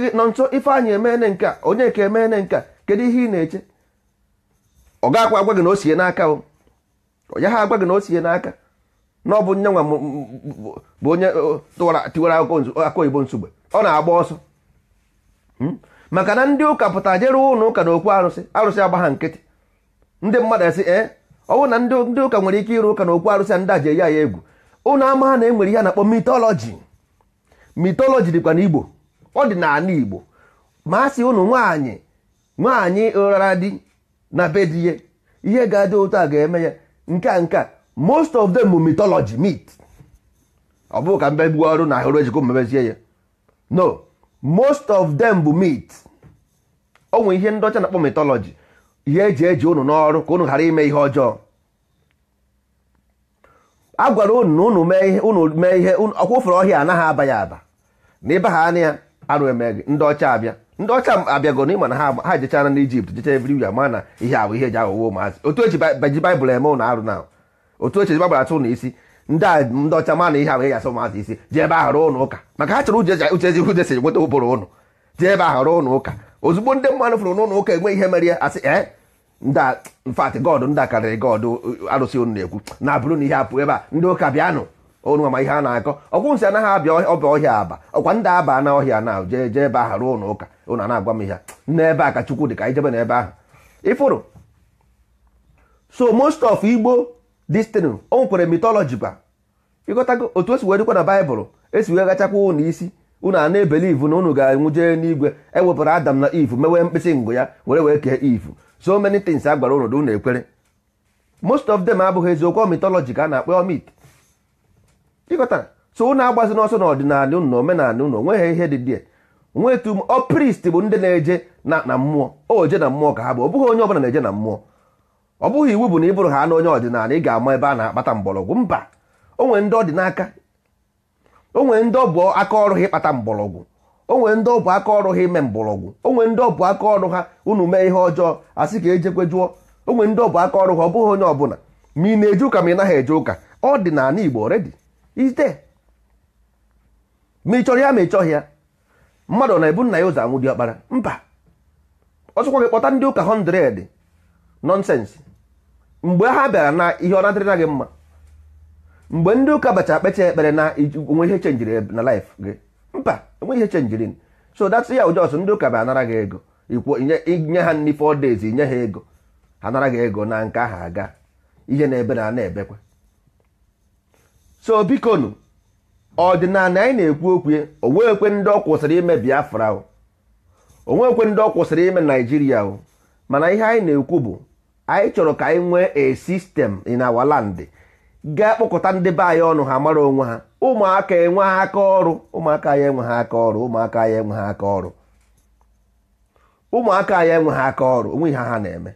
gị nọ nso ife anyị emeene nke a onye ka emeene nke kedu ihe ị na-eche ọ gakwa agwa gị na o sie n'aka ọ ya ha agwa gị na o sie n'aka na ọ bụ nye nwa bụ onye tiwara akụkọ oyibo nsogbu. ọ na-agba ọsọ hmm? maka na ndị ụka pụta jere ụlọ ụka na okwu arụsị arụsị agba ha nkịtị ndị mmadụ esi ee ọ bụrụ na ndị ụka nwere ike ịrụ ụka na okwu arụsị a ndị aje ya ya egwu ụlọ ama ha na-enwere ihe na-akpọ mitọlọji mitọlọji dịkwa n'Igbo ọ dị n'ala Igbo ma a sị ụnụ nwaanyị nwaanyị ụrara di na be di ihe ihe ga-adị ụtọ a ga-eme ya nke a nke a most of them mythology meat ọ bụghị ka mbe gbuo ọrụ na ahụrụ ejikọ mmebezie ya no most of them bụ meat o nwere ihe ndị ọcha na-akpọ mythology ihe eji eji unu n'ọrụ ka unu ghara ime ihe ọjọọ a gwara unu na unu mee ihe unu mee ihe ọkwa ofere ọhịa anaghị aba ya aba na ịba ha anya ya arụ emeghị ndị ọcha abịa ndị ọcha abịago n'ịma na ha ha jechara na ijipt jecha ebiri ya ma na ihe ahụ ihe eji aghọwo ụmụazị otu eji ji baịbụl eme ụlọ arụ na otu eji baịbụl atụ ụlọ isi ndị a ndị ọcha ma na ihe ahụ ihe gasị ụmụazị isi ji ebe ahụ rụọ ụlọ ụka maka ha chọrọ uche ezi uche si nweta ụbụrụ ụnụ ji ebe ahụ rụọ ụlọ ụka ozugbo ndị mmadụ fụrụ n'ụlọ ụka enwe ihe mere ya asị ee nda mfatị god ndị a karịrị god arụsị ụnụ na-ekwu na abụrụ na ihe apụ ebe a ndị ụka bịanụ onu ama ihe a na-akọ ọkwụnsị anaghị abịa ọba ọhịa aba ọkwa ndị aba na ọhịa na jee jee ebe ahụ ruo n'ụka ụnụ na-agwa m ihe n'ebe a ka chukwu dị ka anyị jebe n'ebe ahụ ịfụrụ so most of igbo destin o nwekwere mitọlọji kwa ịghọtago otu esi wee na baịbụl esi wee gachakwa ụnụ isi ụnụ a na-ebeli ivu na ụnụ ga enwu jee n'igwe ewepụrụ adam na ivu mewee mkpịsị ngụ ya were wee kee ivu so many things a gwara ụnụ ụnụ ekwere most of them abụghị eziokwu mitọlọji ka a na-akpọ mit ịghọtara so unu agbazi n'ọsọ n'ọdịnala unu na omenala unu onweghị ihe dị dị nwe etu ọ prist bụ ndị na-eje na mmụọ o je na mmụọ ka ha bụ ọ bụghị onye ọbụla na-eje na mmụọ ọ bụghị iwu bụ na ị bụrụ ha na onye ọdịnala ị ga-ama ebe a na-akpata mgbọrọgwụ mba onwe ndị ọ dị ndị ọbụ aka ọrụ ha ịkpata mgbọrọgwụ onwe ndị ọ bụ aka ọrụ ha ime mgbọrọgwụ onwere ndị ọbụ aka ọrụ ha ụnụ mee ihe ọjọọ sị ka ejekwe jụọ onwe ndị ọ bụ aka ọrụ ha ọ bụghị onye ọbụla ma ị na-eje ụka ma ị naghị eje ụka ọdịnala Igbo redi ite ma ị chọrọ ya ma ị chọghị ya mmadụ na-ebu nna ya ụzọ anwụ ọkpara mba ọsụkwa gị kpọta ndị ụka 100 nọnsensị mgbe ha bịara na ihe ọ na-adịrịna gị mma mgbe ndị ụka bacha kpecha ekpere na onwe ihe chenjiri na laịf gị mba enwe ihe chenjiri so that's ya ụjọsụ ndị ụka bịa anara gị ego ikwu inye ha nri 4 days inye ha ego ha nara gị ego na nke ahụ aga ihe na-ebe na a na-ebekwa so bikonu ọdịnala anyị na-ekwu okwu onwekwe ndị ọ kwụsịrị ime biafra onwekwe ndị ọ kwụsịrị ime naijiria o mana ihe anyị na-ekwu bụ anyị chọrọ ka anyị nwee e sistem in our gaa ga ndị be anyị ọnụ ha mara onwe ha ụmụaka enwe ha aka ọrụ ụmụaka ya enwe ha aka ọrụ ụmụaka ya enwe ha aka ọrụ ụmụaka ya enwe ha aka ọrụ onwe ihe ha na-eme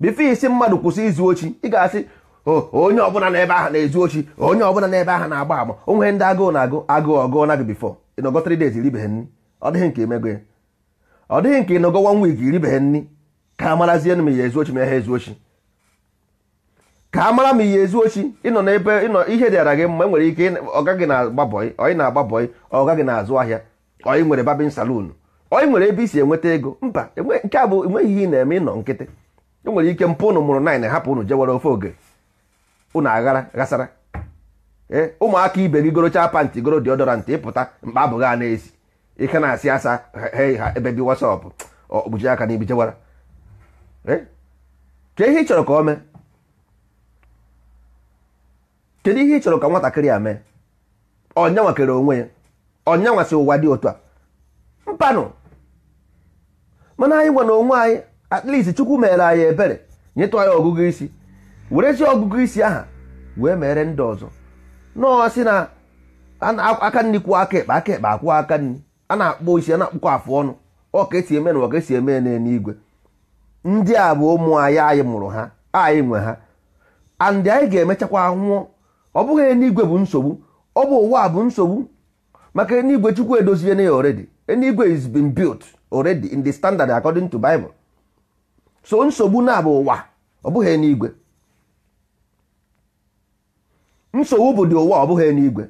bifo isi mmadụ kwụsị izu ochi ị ga-asị Oh, onye ọbụla n'ebe ahụ na-ezu ochi onye ọbụla na ebe ahụ na-agba agba onwe ndị agụụ na-agụ agụụ ọgụụ na gị bifọ ịnọgọ 3 days iribeghị nni ọ dịghị nke emego ya ọ dịghị nke ịnọgọ one week nni ka a marazie m ezu ochi ma ezu ochi ka a mara m ihe ezu ochi ịnọ n'ebe ịnọ ihe dịara gị mma enwere ike ọgaghị na-agbabọị ọyị na-agbabọị ọgaghị na-azụ ahịa ọyị nwere babin ọyị nwere ebe isi enweta ego mba nke a bụ ihe ị na-eme ịnọ nkịtị nwere ike mpụ ụnụ mụrụ hapụ ụnụ jewere ofe oge ụnụ aghara ghasara eh, ụmụaka ibe gị gorochaa panti goro deodorant ịpụta mkpa abụghị a na-esi ike na-asị asa ha ebe bi wasapụ okpuchi aka na ibichewara eh, kedu ihe ị chọrọ ka ọ mee kedu ihe ị chọrọ ka nwatakịrị a mee ọnyanwa kere onwe ya ọnyanwa si ụwa dị otu a mpanụ mana anyị nwa na onwe anyị at least chukwu meere anyị ebere nyetụ anyị ọgụgụ isi werezie ọgụgụ isi aha wee mere ndị ọzọ nọọ na aka nri kwuo aka ekpe aka ekpe akwụọ aka nri a na-akpọ isi a na-akpụkọ afụ ọnụ ọka esi eme na ọka esi eme n'eluigwe ndị a bụ ụmụ anyị anyị mụrụ ha anyị nwe ha and anyị ga-emechakwa nwụọ ọ bụghị eluigwe bụ nsogbu ọ bụ ụwa bụ nsogbu maka eluigwe chukwu edozie na ya already eluigwe is been built already in the standard according to Bible so nsogbu na-abụ ụwa ọ bụghị eluigwe nsogbu bụ dị ụwa ọ bụghị n'igwe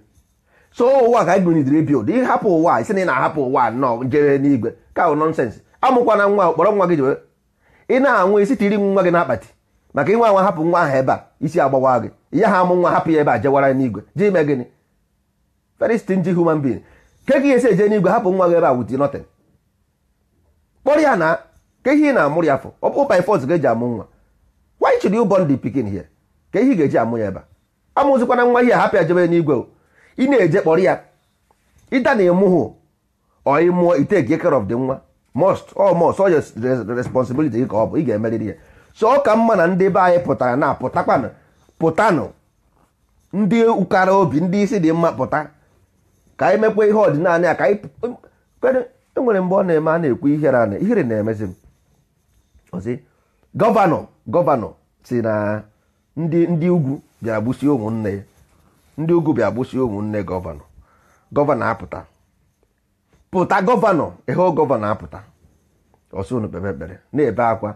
so ụwa ka anyị bụnidiri bild hapụ ụwa isi na ị na-ahapụ ụwa nọ jere n'igwe ka ahụ nọnsensị amụkwana nwa kpọrọ nwa gị jewe ị na-anwụ isi tiri nwa gị n'akpati maka inwe anwa hapụ nwa ahụ ebe a isi agbawa gị ya ha amụ nwa hapụ ya ebe a jewara n'igwe ji ime gịnị very stingy human being ke gị esi eje n'igwe hapụ nwa gị ebe a wuti nothing kpọrọ ya na ihe ị na-amụrụ ya fọ ọ bụ by force eji amụ nwa why should you born pikin here ka ihe ị ga-eji amụ ya ebe a amụzikwana nwa ihe hapụ ajebe n'igwe ị na-eje kpọrọ ya ịda na ịmụhụ ọ mụọ ite take care of the nwa most or most or responsibility gị ka ọ bụ ị ga-emerịrị ya so ọ ka mma na ndị be anyị pụtara na pụtakwanụ pụtanụ ndị ụkara obi ndị isi dị mma pụta ka anyị mekwa ihe ọdịnala ya ka anyị enwere e mgbe ọ na-eme a na-ekwu ihere ana ihere na-emezi m ozi gọvanọ gọvanọ si na ndị ndị ugwu bịa gbụsie ụmụnne ndị ugwu bịa gbụsie ụmụnne gọvanọ gọvanọ apụta pụta gọvanọ ịhụ gọvanọ apụta ọsọ unu kpere ekpere na-ebe akwa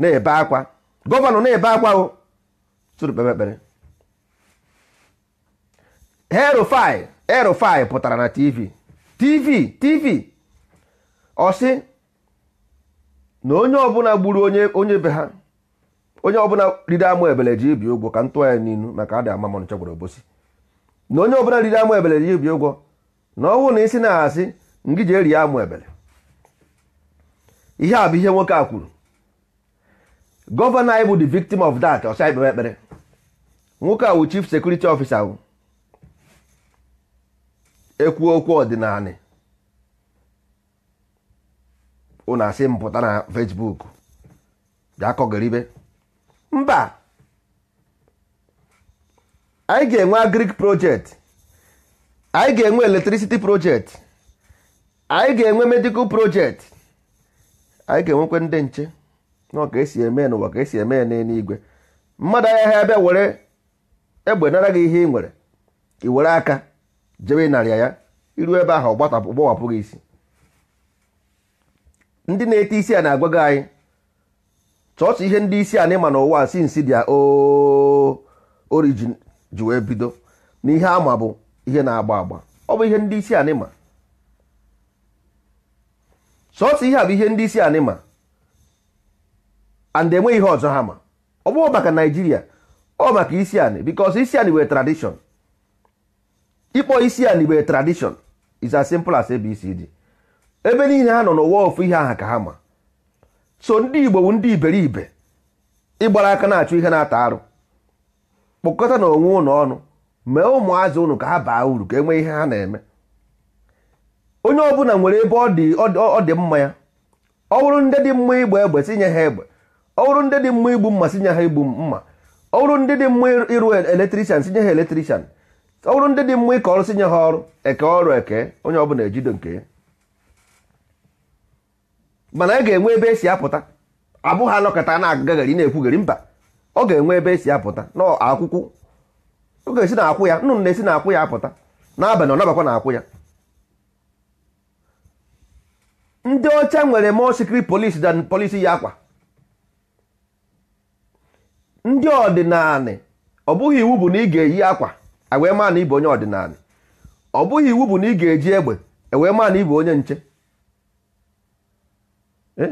na-ebe akwa gọvanọ na-ebe akwa o sụrụ kpere ekpere herofai herofai pụtara na tv tv tv ọsị na onye ọbụla gburu onye onye be ha onye ọbụla riri amụ ebele ji ibi ụgwọ ka ntụ ya n'ilu maka adị ama mọnụ chọgburu obosi na onye ọbụla riri amụ ebele ji ibi ụgwọ na ọnwụ na isi na-asị ngị ji eri amụ ebele ihe a bụ ihe nwoke a kwuru gọvanọ anyị bụ the victim of that ọsọ ikpere ekpere nwoke a wụ chief security officer wụ ekwu okwu ọdịnala ụnụ asị mpụta na Facebook bịa kọgaribe mba anyị ga-enwe agrik project anyị ga-enwe electricity project anyị ga-enwe medical project anyị ga-enwekwe ndị nche nọ ka esi eme n'ụwa ka esi eme ya n'eluigwe mmadụ anya ebe bịa were egbe nara gị ihe ị nwere ị were aka jebe narịa ya iru ebe ahụ ọ gbawapụ gị isi ndị na-ete isi a na-agwa gị anyị church ihe ndị isi anyị ma n'ụwa sinsi dia origin ji wee bido na ihe ama bụ ihe na-agba agba ọ bụ ihe ndị isi anyị ma ihe a bụ ihe ndị isi anyị ma and enweghị ihe ọzọ ha ma ọ bụghị maka naijiria ọ maka isi anyị because isi anyị were tradition ịkpọ isi anyị were tradition is as simple as abcd ebe niile ha nọ n'ụwa ofu ihe aha ka ha ma so ndị igbo bụ ndị iberibe ịgbara aka na-achụ ihe na-ata arụ kpọkọta na onwe ụlọ ọnụ mee ụmụazị ụnụ ka ha baa uru ka enwee ihe ha na-eme onye ọbụla nwere ebe ọ dị mma ya ọ bụrụ ndị dị mma igba egbe si ha egbe ọ bụrụ ndị dị mma igbu mma sinye ha igbu mma ọ bụrụ ndị dị mma ịrụ eletrikshan sinye ha eletrikshan ọ bụrụ ndị dị mma ịkọ ọrụ sinye ha ọrụ eke ọrụ eke onye ọbụla ejido nke ya mana a ga-enwe ebe esi apụta abụghị anọkọta na-agagaghari na ekwugari mba ọ ga-enwe ebe esi apụta n'akwụkwọ ọ ga-esi na akwụ ya nnụnụ na-esi na akwụ ya apụta n'abalị ọ nabakwa na akwụ ya ndị ọcha nwere more secret polisi than ya akwa ndị ọdịnala ọ bụghị iwu bụ na ị ga-eyi akwa ewee maa na ịbụ onye ọdịnala ọ bụghị iwu bụ na ị ga-eji egbe ewee maa na ịbụ onye nche Eh?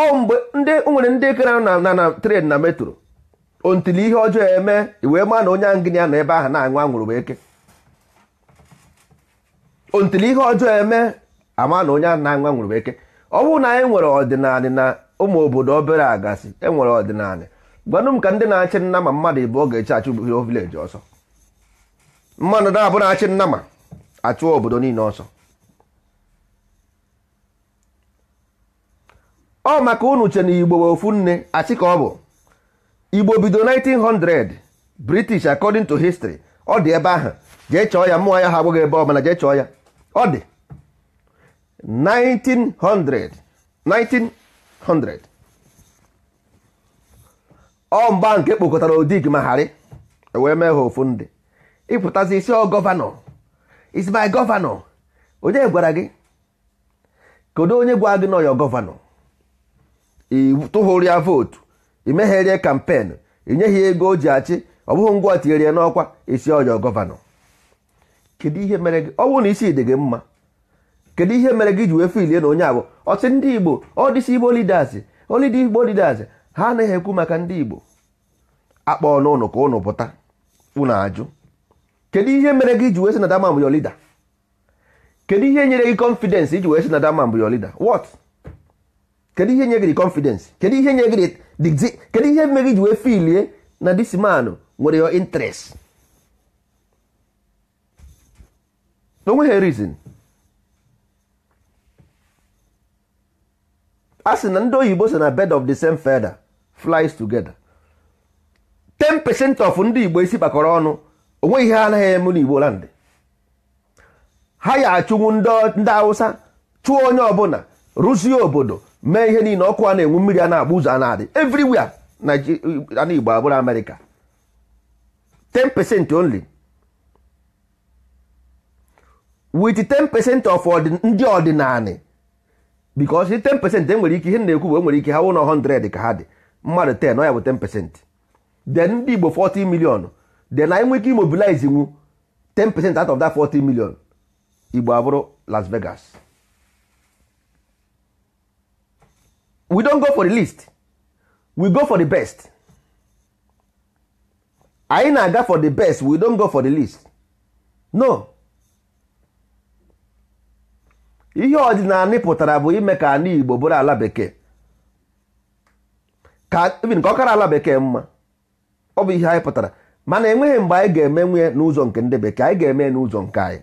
ọ mgbe nwere ndị kere na na tren na metro ontili ihe ọjọọ eme wee maa na onye angịnị ya nọ ebe ahụ na-aṅụ anwụrụ bụ eke ontili ihe ọjọọ eme ama na onye a na-aṅụ anwụrụ eke ọ bụrụ na anyị nwere ọdịnala na ụmụ obodo obere agasị enwere ọdịnala gwanụ m ka ndị na-achị nna ma mmadụ ịbụọ ga-eche achụ vileji ọsọ mmadụ na-abụ na-achị nna ma achụọ obodo niile ọsọ ọ maka unu che na igbo ofu nne achị ka ọ bụ igbo bido 1900 british according to history ọ dị ebe ahụ jee chọọ ya mmụọ ya ha agbụghị ebe ọbụla jee chọọ ya ọ dị 1900 1900 ọ mgba nke kpokọtara odig ma harị e wee mee ha ofu ndị ịpụtazi isi ọ gọvanọ is my gọvanọ onye gwara gị kedu onye gwa gị nọ ya gọvanọ ịtụghoria vootu imegherie kampen inyeghị ego o ji achị ọ bụghị ngwa tinyere ya n'ọkwa isi ọjọọ gọvanọ kedu ihe mere gị ọ bụrụ na isi dị gị mma kedu ihe mere gị ji wee filie na onye abụ ọsị ndị igbo ọdịsi igbo lidas olidi igbo lidas ha anaghị ekwu maka ndị igbo akpọ n'ụnụ ka ụnụ pụta ụnụ ajụ kedu ihe mere gị ji wee sị na damam yo lida kedu ihe nyere gị kọnfidensị iji wee sị na damam yo lida what kedu ihe nye gị confidence kedu ihe nye gị kedu ihe mere iji wee filie na this man nwere your interest onweghị reason a sị na ndị oyibo sị na bed of the same feather flies together 10% of ndị igbo isi kpakọrọ ọnụ onweghị ihe anaghị eme n'igbo land ha ya achụnwu ndị awụsa chụọ onye ọbụla rụzie obodo mee ihe niile ọkụ a na-enwu mmiri a na-agba ụzọ a na-adị everywhere uh, na Igbo abụrụ Amerịka 10% only with 10% of ndị ọdịnala because 10% enwere ike ihe na-ekwu bụ enwere ike ha wụ na 100 ka ha dị mmadụ 10 ọ ya bụ 10% then ndị Igbo 40 million then anyị nwee ike imobilize nwu 10% out of that 40 milion Igbo abụrụ Las Vegas we don't go for the list we go for the best anyị na-aga for the best we don't go for the list no ihe ọdịnala pụtara bụ ime ka ala Igbo bụrụ ala bekee ka even ka ọ kara ala bekee mma ọ bụ ihe anyị pụtara mana enweghị mgbe anyị ga-eme nwunye n'ụzọ nke ndị bekee anyị ga-eme n'ụzọ nke anyị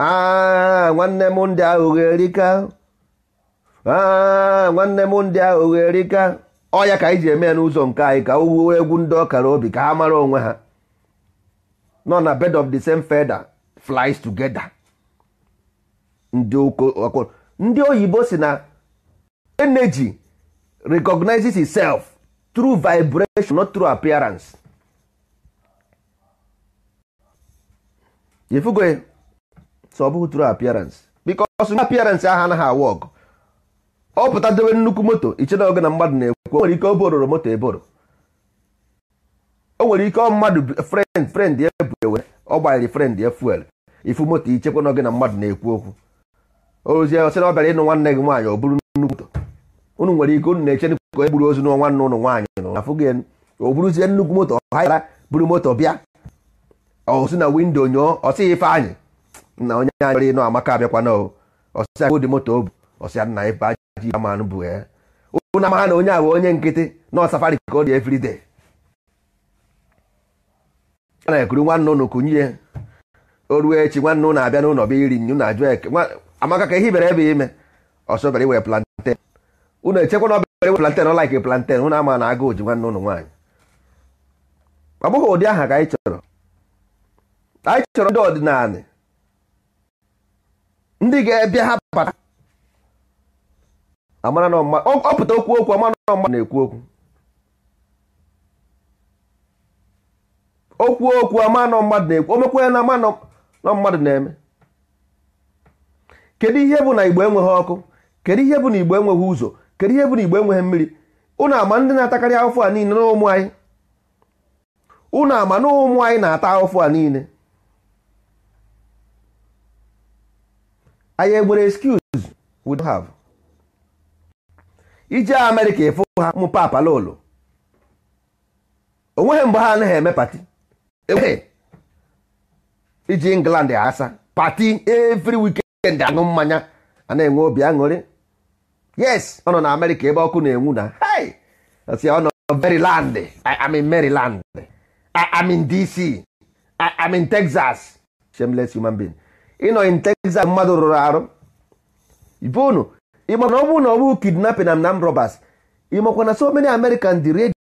aa ah, nwanne m ndị ahụ erika Ah, nwanne m ndị ahụ ọ ọya ka anyị ji eme ya n'ụzọ nke anyị ka owuwe egwu ndị ọkara obi ka ha mara onwe ha nọ na bed of the same feather flies together ndị ndị oyibo si na energy recognizes itself through vibration not through appearance ifugo so ọ bụghị appearance because appearance aha anaghị awa ọ pụta dobe nnukwu moto ichena oge na mmadụ na-ekwu o nwere ike oboro moto eboro o nwere ike ọ mmadụ frend frend ya bụ ewe ọ gbanyere frend ya fuel ifu moto ichekwa n'oge na mmadụ na-ekwu okwu ozie ọ sị ọ bịara ịnụ nwanne gị nwaanyị ọ bụrụ nnukwu moto unu nwere ike unu na-eche ka e gburu ozu n'ọnwa nwanne ụnụ nwaanyị nọ afụ gị o buruzie nnukwu moto ha yara buru moto bịa osi na windo nyụọ ọsị ife anyị na onye anyị nwere ịnụ amaka abịakwana ọsịa dị moto o ọsịa nna ife anyị Chairman bụ eh? ya ụnụ amaha na onye a bụ onye nkịtị nọ safari ka ọ dị everyday a na-ekuru nwanne ụnụ kunye eh? o ruo echi nwanne ụnụ abịa n'ụlọ bịa iri nnu na ajụ eke amaka ka ihe bere ebe ime ọsọbere iwe planten ụnụ echekwa ọbere iwe planten ọlaik planten ụnụ ama na agụụ ji nwanne ụnụ nwaanyị ọ bụghị ụdị aha ka anyị chọrọ anyị chọrọ ndị amara na ọma ọpụta okwu okwu amara na na-ekwu okwu okwu okwu ama na mmadụ na-ekwu omekwa ya na ama na mmadụ na-eme kedu ihe bụ na igbo enweghị ọkụ kedu ihe bụ na igbo enweghị ụzọ kedu ihe bụ na igbo enweghị mmiri ụnụ ama ndị na-atakarị ahụfụ a niile n'ụmụ anyị ụnụ ama na ụmụ anyị na-ata ahụfụ a niile anyị egbere excuse we don't have ije amerịka ịfụ ha ụmụ papa ụlọ onweghị mgbe ha anaghị eme pati enweghị iji england asa pati every weekend aṅụ mmanya a na-enwe obi aṅụrị yes ọ nọ na amerịka ebe ọkụ na-enwu na hey si ọ nọ maryland i'm in maryland i'm in dc i'm in texas shameless human being ịnọ in texas mmadụ rụrụ arụ ibe unu ịma na ọ na ọ bụ kidnapping and armed robbers ịmakwa na so many Americans di redi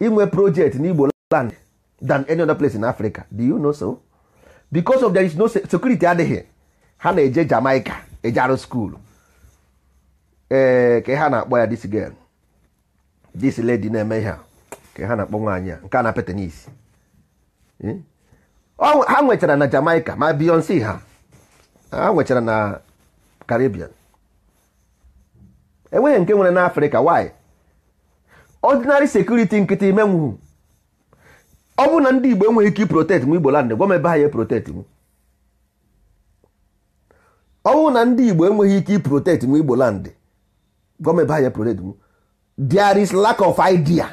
inwe project na Igbo land than any other place in Africa do you know so because of there is no security adịghị ha na-eje Jamaica eje arụ skuulu ee ka ha na-akpọ ya this girl this lady na-eme ihe a ka ha na-akpọ nwaanyị a nke a na-apịa tenis hmm? ha nwechara na Jamaica ma Beyonce ha ha nwechara na Caribbean enweghị nke nwere n'afrịka why ọdịnarị sekuriti nkịtị menwu ọ bụrụ na ndị igbo enweghị ike protect m igbo land gwa m ebe ha ya protect m ọ na ndị igbo enweghị ike protect m igbo land gwa m ebe ha ya protect m there is lack of idea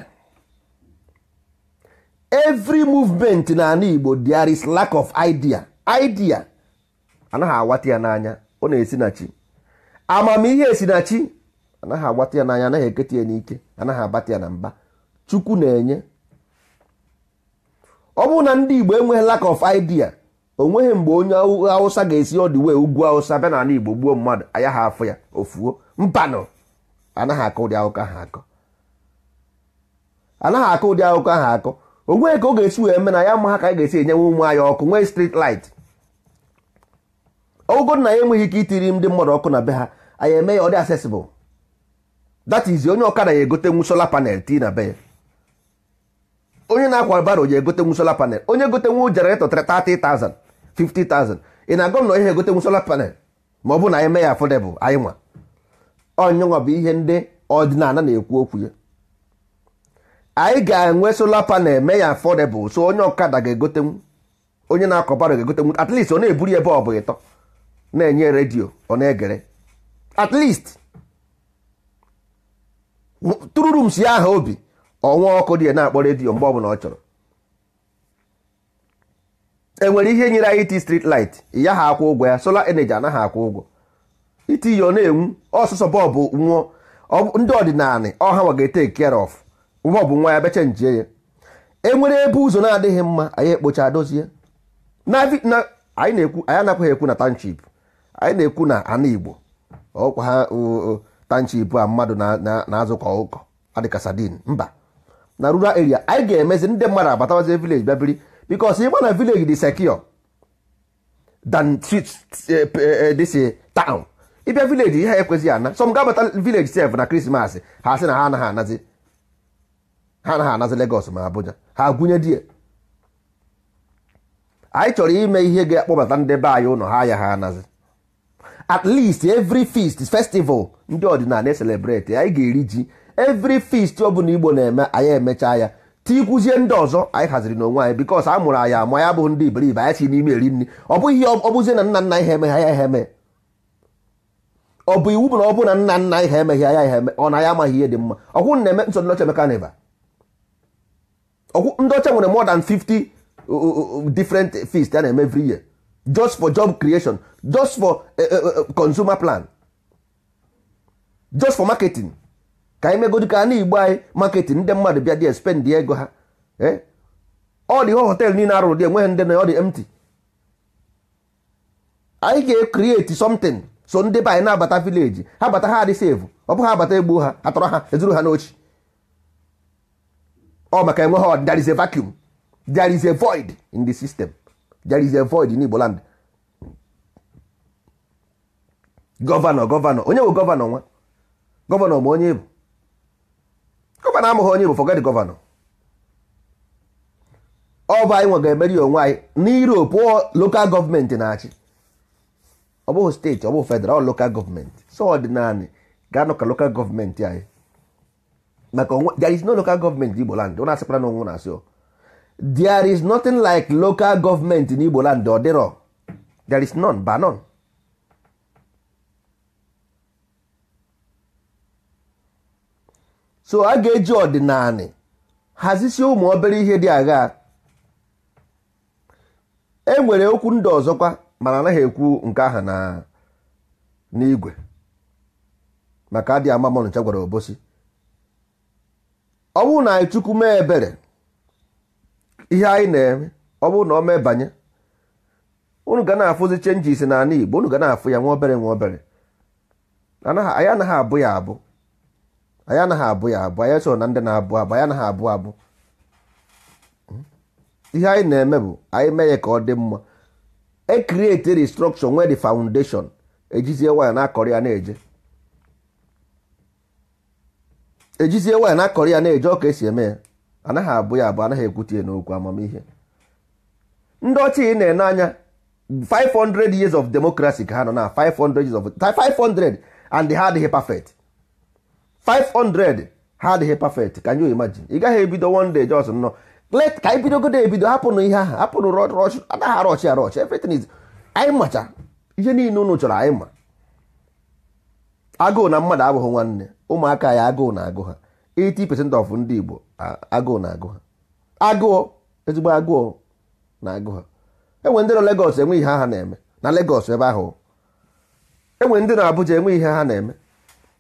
every movement n'ala igbo there is lack of idea idea anaghị awata ya n'anya ọ na-esi na chi amamihe esi na chi anaghị agbata ya n'anya anaghị eketa ya n'ike anaghị abata ya na mba chukwu na-enye ọ bụrụ na ndị igbo enweghị lack of idea onweghị mgbe onye awụsa ga-esi ọdụ wee ugwu awụsa bịa n'ala igbo gbuo mmadụ anya ha ya ofuo mpanụ anaghị akụ ụdị akụkọ ahụ akọ anaghị akọ ụdị akụkọ ahụ akọ onweghị ka ọ ga-esi wee eme ya ma ha ka anyị ga-esi enyenwe ụmụ anyị ọkụ nwee street light ọgụgụ na ya enweghị ike itiri ndị mmadụ ọkụ na be ha anyị eme ya ọ dị accessible that is onye ọkada ya egotenwu sola panel ti na be ya onye na-akwa baro ya egotenwu sola panel onye gotenwu jenareto 30,000 50,000 ị na-agụ na ihe egotenwu sola panel ma ọ bụ na eme ya afọdebụl anyị nwa ọnyụnwa bụ ihe ndị ọdịnala na-ekwu okwu ya anyị ga-enwe solar panel mee ya afọdebụl so onye ọkada ga-egotenwu onye na-akọ baro ga-egotenwu at least ọ na-eburu ebe ọ bụ ịtọ na-enye redio ọ na-egere at least tụrụrụ si aha obi ọnwa ọkụ dị ya na-akpọ redio mgbe ọbụla ọ chọrọ enwere ihe nyere anyị iti street light ya ha akwụ ụgwọ ya sola energy anaghị akwụ ụgwọ iti ya ọ na-enwu ọsụsọ bọbụ nwụọ ndị ọdịnala ọha nwa ga-ete care of bọọbụ nwa ya becha njie ya enwere ebe ụzọ na-adịghị mma anyị ekpocha dozie anyị na-ekwu anyị anaghị ekwu na township anyị na-ekwu na ana igbo ọkwa ha tanchi ibu a mmadụ na-azụ ka adịka sadin mba na rural area anyị ga-emezi ndị mmadụ abatawazi village bịa biri because ịgba na village dị secure than eh, eh, eh, this taụn ịbịa village ihe ekwezighị ana some ga-abata village sef na krismas ha sị na ha anaghị anazi ha anaghị anazi Lagos ma Abuja ha gụnye die anyị chọrọ ime ihe ga-akpọbata ndị be anyị ụlọ ha ya ha anazi at least every feast festival ndị ọdịnala celebrate anyị ga-eri ji every feast ọ bụla igbo na-eme anyị emechaa ya tikwuzie ndị ọzọ anyị haziri n'onwe anyị bikos a mụrụ anyị ama ya bụ ndị iberibe anyị si n'ime eri nri ọ bụghị ọ bụzie na nna nna anyị ha emeghe ya ihe eme ọ bụ iwu bụ na ọ bụ na nna nna anyị ha emeghe ya ihe eme ọ na ya amaghị ihe dị mma ọkwụ na-eme nsọ ndị ọcha mekanịba ọkwụ ndị ọcha nwere more than 50 uh, uh, uh, different feast ya na-eme every year just for job creation just for eh, eh, eh, consumer plan just for marketing ka anyị na ka anyị igbo anyị marketing ndị mmadụ bịa dị spend ego ha ọ dị hotel niile arụrụ dị enweghị ndị na ọ dị empty anyị ga ekreti something so ndị be anyị na-abata village ha bata ha adị save ọ bụ ha abata egbu ha atọrọ ha ezuru ha n'ochi ọ maka enweghị there is a vacuum there is a void in the system there is a void in Igbo land gọvanọ gọvanọ onye bụ gọvanọ nwa gọvanọ ma onye bụ gọvanọ amụghị onye bụ forget gọvanọ ọba anyị nwe ga-emeri onwe anyị n'Europe lokal gọọmenti na-achị ọ bụghị steeti ọ bụghị federal lokal gọọmenti so ọdịnala ga-anọ ka lokal gọọmenti anyị maka onwe there is no local gọọmenti n'Igbo land ọ na-asịkwara na onwe na-asị there is nothing like local gọọmenti n'Igbo land ọ dịrọ there is none ba none so a ga-eji ọdịnala hazisie ụmụ obere ihe dị agha e nwere okwu ndị ọzọkwa mana anaghị ekwu nke aha na n'igwe maka adị ama mọnụcha gwara obosi ọ bụrụ na anyị chukwu mee ebere ihe anyị na-eme ọ bụrụ na ọ mee banye unu ga na-afụzi chenji isi n'ala Igbo unu ga na-afụ ya nwa obere nwa obere anyị anaghị abụ ya abụ anyị anaghị abụ ya abụ anyị so na ndị na-abụ abụ anyị anaghị abụ abụ hmm? ihe anyị na-eme bụ anyị mee ya ka ọ dị mma e create restruction nwee the foundation ejizie waya na-akọrọ ya na-eje ejizie waya na-akọrọ ya na-eje ọ ka esi eme ya anaghị abụ ya abụ anaghị ekwute ya n'okwu amamihe ndị ọcha ị na-ene anya 500 years of democracy ka ha nọ na 500 years of 500 and ha adịghị perfect 500 ha adịghị perfect ka you imagine ị gaghị ebido one day just nọ let ka anyị bidogodo ebido hapụnụ ihe ahụ hapụnụ rọch anaghị arọch arọch everything is anyị macha ihe niile unu chọrọ anyị ma agụụ na mmadụ abụghị nwanne ụmụaka ya agụụ na agụ ha 80% of ndị Igbo agụụ na agụ ha agụọ ezigbo agụọ na agụ ha enwe ndị nọ Lagos enwe ihe ha na-eme na Lagos ebe ahụ enwe ndị nọ Abuja enwe ihe ha na-eme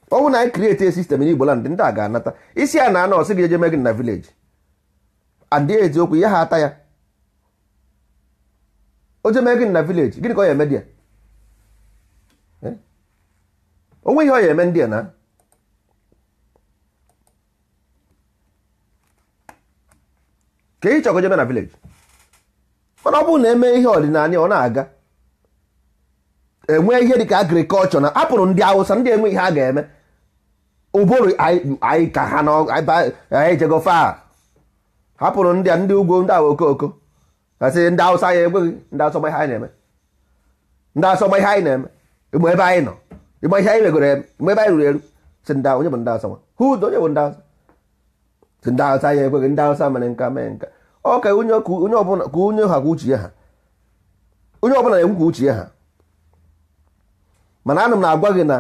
ọ bụ na anyị e system n'Igbo land ndị a ga-anata isi a na ana gị jeje mee gị na village and eziokwu ya ha ata ya o je gị na village gịnị ka ọ ya eme dịa. Eh? o nweghị ọ ya eme ndị a na ka ị chọgo jeme na village mana ọ bụrụ na eme ihe ọdịnala ọ na-aga enwe ihe dịka agrikọlchọ na apụrụ ndị Awụsa ndị enwe ihe a ga-eme ụbụrụ anyị ka ha anyị jego fa hapụrụ ndị a ndị ugwu ndị awa okooko asị ndị awụsa ya ekweghị ndị asọma ihe anyị na-eme ndị asọma ihe anyị na-eme ịgba ebe anyị nọ ịgba ihe anyị megoro eme ịgba ebe anyị ruru eru Si ndị onye bụ ndị asọma hụ ụdọ onye bụ ndị asọma Si ndị awụsa ya ekweghị ndị awụsa mere nka mee nka ọ ka onye ọbụla ka onye ha kwa uche ha onye ọbụla na-ekwu kwa uche ha mana anụ m na-agwa gị na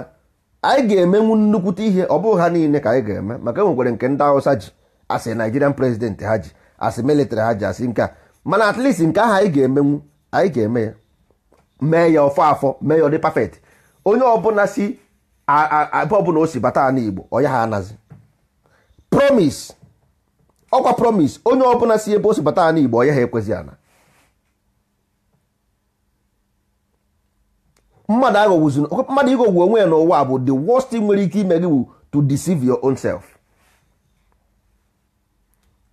anyị ga-emenwu nnukwute ihe ọ bụghị ha niile ka anyị ga-eme maka enwekwere nke ndị awụsa ji asị naijirian prezidenti ha ji asị military ha ji asị nke a mana at least nke ahụ anyị ga-emenwu anyị ga-eme ya mee ya ọfọ afọ mee ya ọ dị perfect onye ọbụla si ebe ọbụla o si bata ala Igbo ọya ha anazi promise ọkwa promise onye ọbụla si ebe o si bata ala Igbo ọya ha ekwezi ana mmadụ aghọgwuzi mmadụ ịghọgwu onwe ya n'ụwa bụ the worst nwere ike ime gị bụ to deceive your own self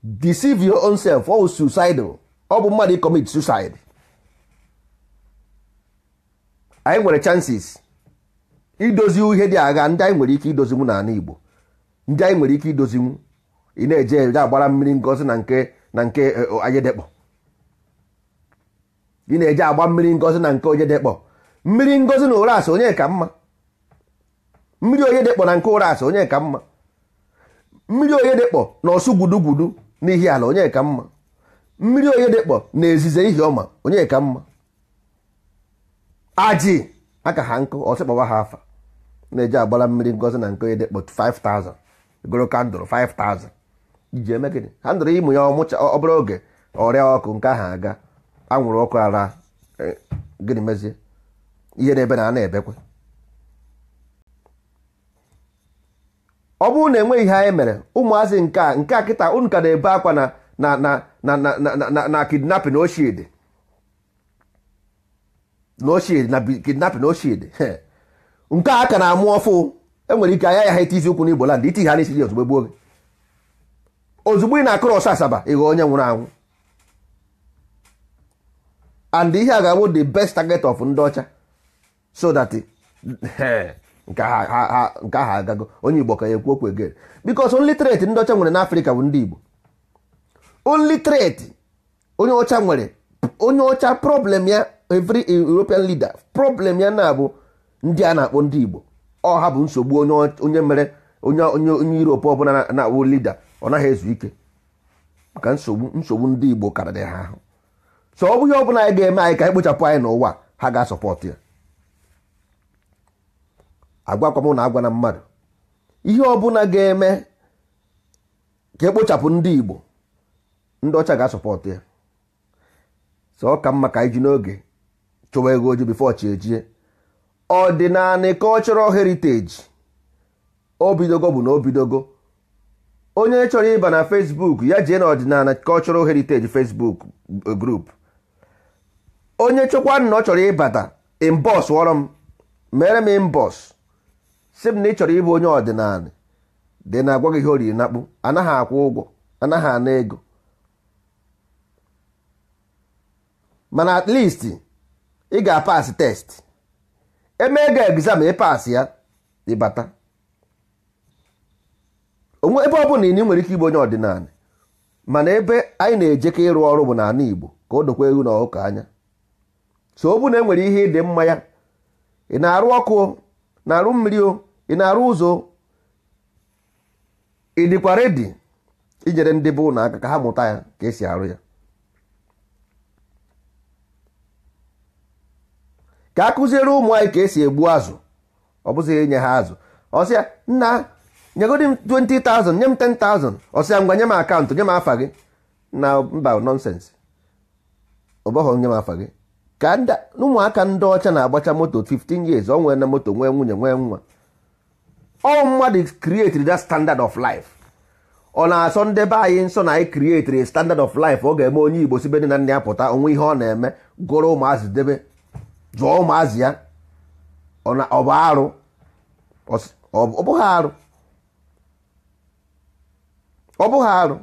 deceive your own self ọ bụ suicidal ọ bụ mmadụ commit suicide anyị nwere chances idozi ihe dị agha ndị anyị nwere ike idozinwu n'ala Igbo ndị anyị nwere ike idozinwu ị na-eje ị na-eje agba mmiri ngozi na nke eh, onye mmiri ngozi na ụras onye ka mma mmiri onye dịkpọ na nke ụras onye ka mma mmiri onye dịkpọ na ọsụ gwudugwudu na ala onye ka mma mmiri onye dịkpọ na ezize ihi ọma onye ka mma ajị aka ha nkụ ọsịkpọwa ha afa na-eji agbara mmiri ngozi na nke onye dekpọ 5000 goro kandụl 5000 iji eme gịnị ha ndụrụ ịmụ ya ọmụcha ọ bụrụ oge ọrịa ọkụ nke ahụ aga anwụrụ ọkụ ara e, gịnị mezie ihe na ebe na-ebekwe ọ bụrụ na enweghị ihe anyị mere ụmụazị nke a nke a kịta unu ka na-ebe akwa na na na na na na kidnapping na na nke a ka na-amụ ọfụ enwere ike anya ya ha iti isi ụkwụ n'Igbo land iti ha n'isi ozugbo gbuo gị ozugbo ị na-akụrụ ọsọ asaba ịghọ onye nwụrụ anwụ and ihe a ga-abụ the best target of ndị ọcha so that nke ahụ agago onye igbo ka ya ekwu okwu egere bikos only trade ndị ọcha nwere afrika bụ ndị igbo only trade onye ọcha nwere onye ọcha problem ya every european leader problem ya na-abụ ndị a na-akpọ ndị igbo ọ ha bụ nsogbu onye mere onye onye europe ọbụla na-awụ lida ọ naghị ezu ike maka nsogbu nsogbu ndị igbo karịrị ha ahụ so ọ bụghị ọbụla anyị ga-eme anyị ka anyị kpochapụ anyị n'ụwa ha ga-asọpọtụ ya agwakwa m na agwa na mmadụ ihe ọbụla ga-eme ka ekpochapụ ndị Igbo ndị ọcha ga-asọpọtụ ya so ọ ka mma ka iji n'oge chụwa ego oji bifo chi ejie ọdịnala cultural heritage o bidogo bụ na o bidogo onye chọrọ ịba na Facebook ya jee na ọdịnala cultural heritage Facebook e, grup onye chọkwa na ọ chọrọ ịbata imbọs wọrọ m mere m imbọs si m na ị chọrọ ịbụ onye ọdịnala dị na agwa gị ihe oriri nakpụ anaghị akwụ ụgwọ anaghị ana ego mana at least ị ga-apasị test eme ego egzam pas ya ịbata onwe ebe ọ bụla ị nwere ike ịbụ onye ọdịnala mana ebe anyị na-ejeka ịrụ ọrụ bụ n'ala Igbo ka o dokwa ewu na ọkụkọ anya so ọ bụ na enwere ihe ịdị mma ya ị na-arụ ọkụ na-arụ mmiri o ị na-arụ ụzọ ị dịkwa redi inyere ndị bụ ụlọ aka ka ha mụta ya ka esi arụ ya ka a kụziere ụmụ anyị ka esi egbu azụ ọ bụzi nye ha azụ ọsịa nna nyegodi m 20,000 nye m 10,000 ọsịa ngwa nye m akaụntụ nye m afa gị na mba nọnsensị ọbọghọ nye m afa gị ka ụmụaka ndị ọcha na-agbacha moto 15 years ọ nwere na moto nwee nwunye nwee nwa all mmadụ created that standard of life ọ na-asọ ndị be anyị nsọ na anyị created standard of life ọ ga-eme onye igbo sibe nne na nna ya pụta onwe ihe ọ na-eme gụrụ ụmụazị debe jụọ ụmụazị ya ọ bụ arụ ọbụghị bụghị arụ ọ bụghị arụ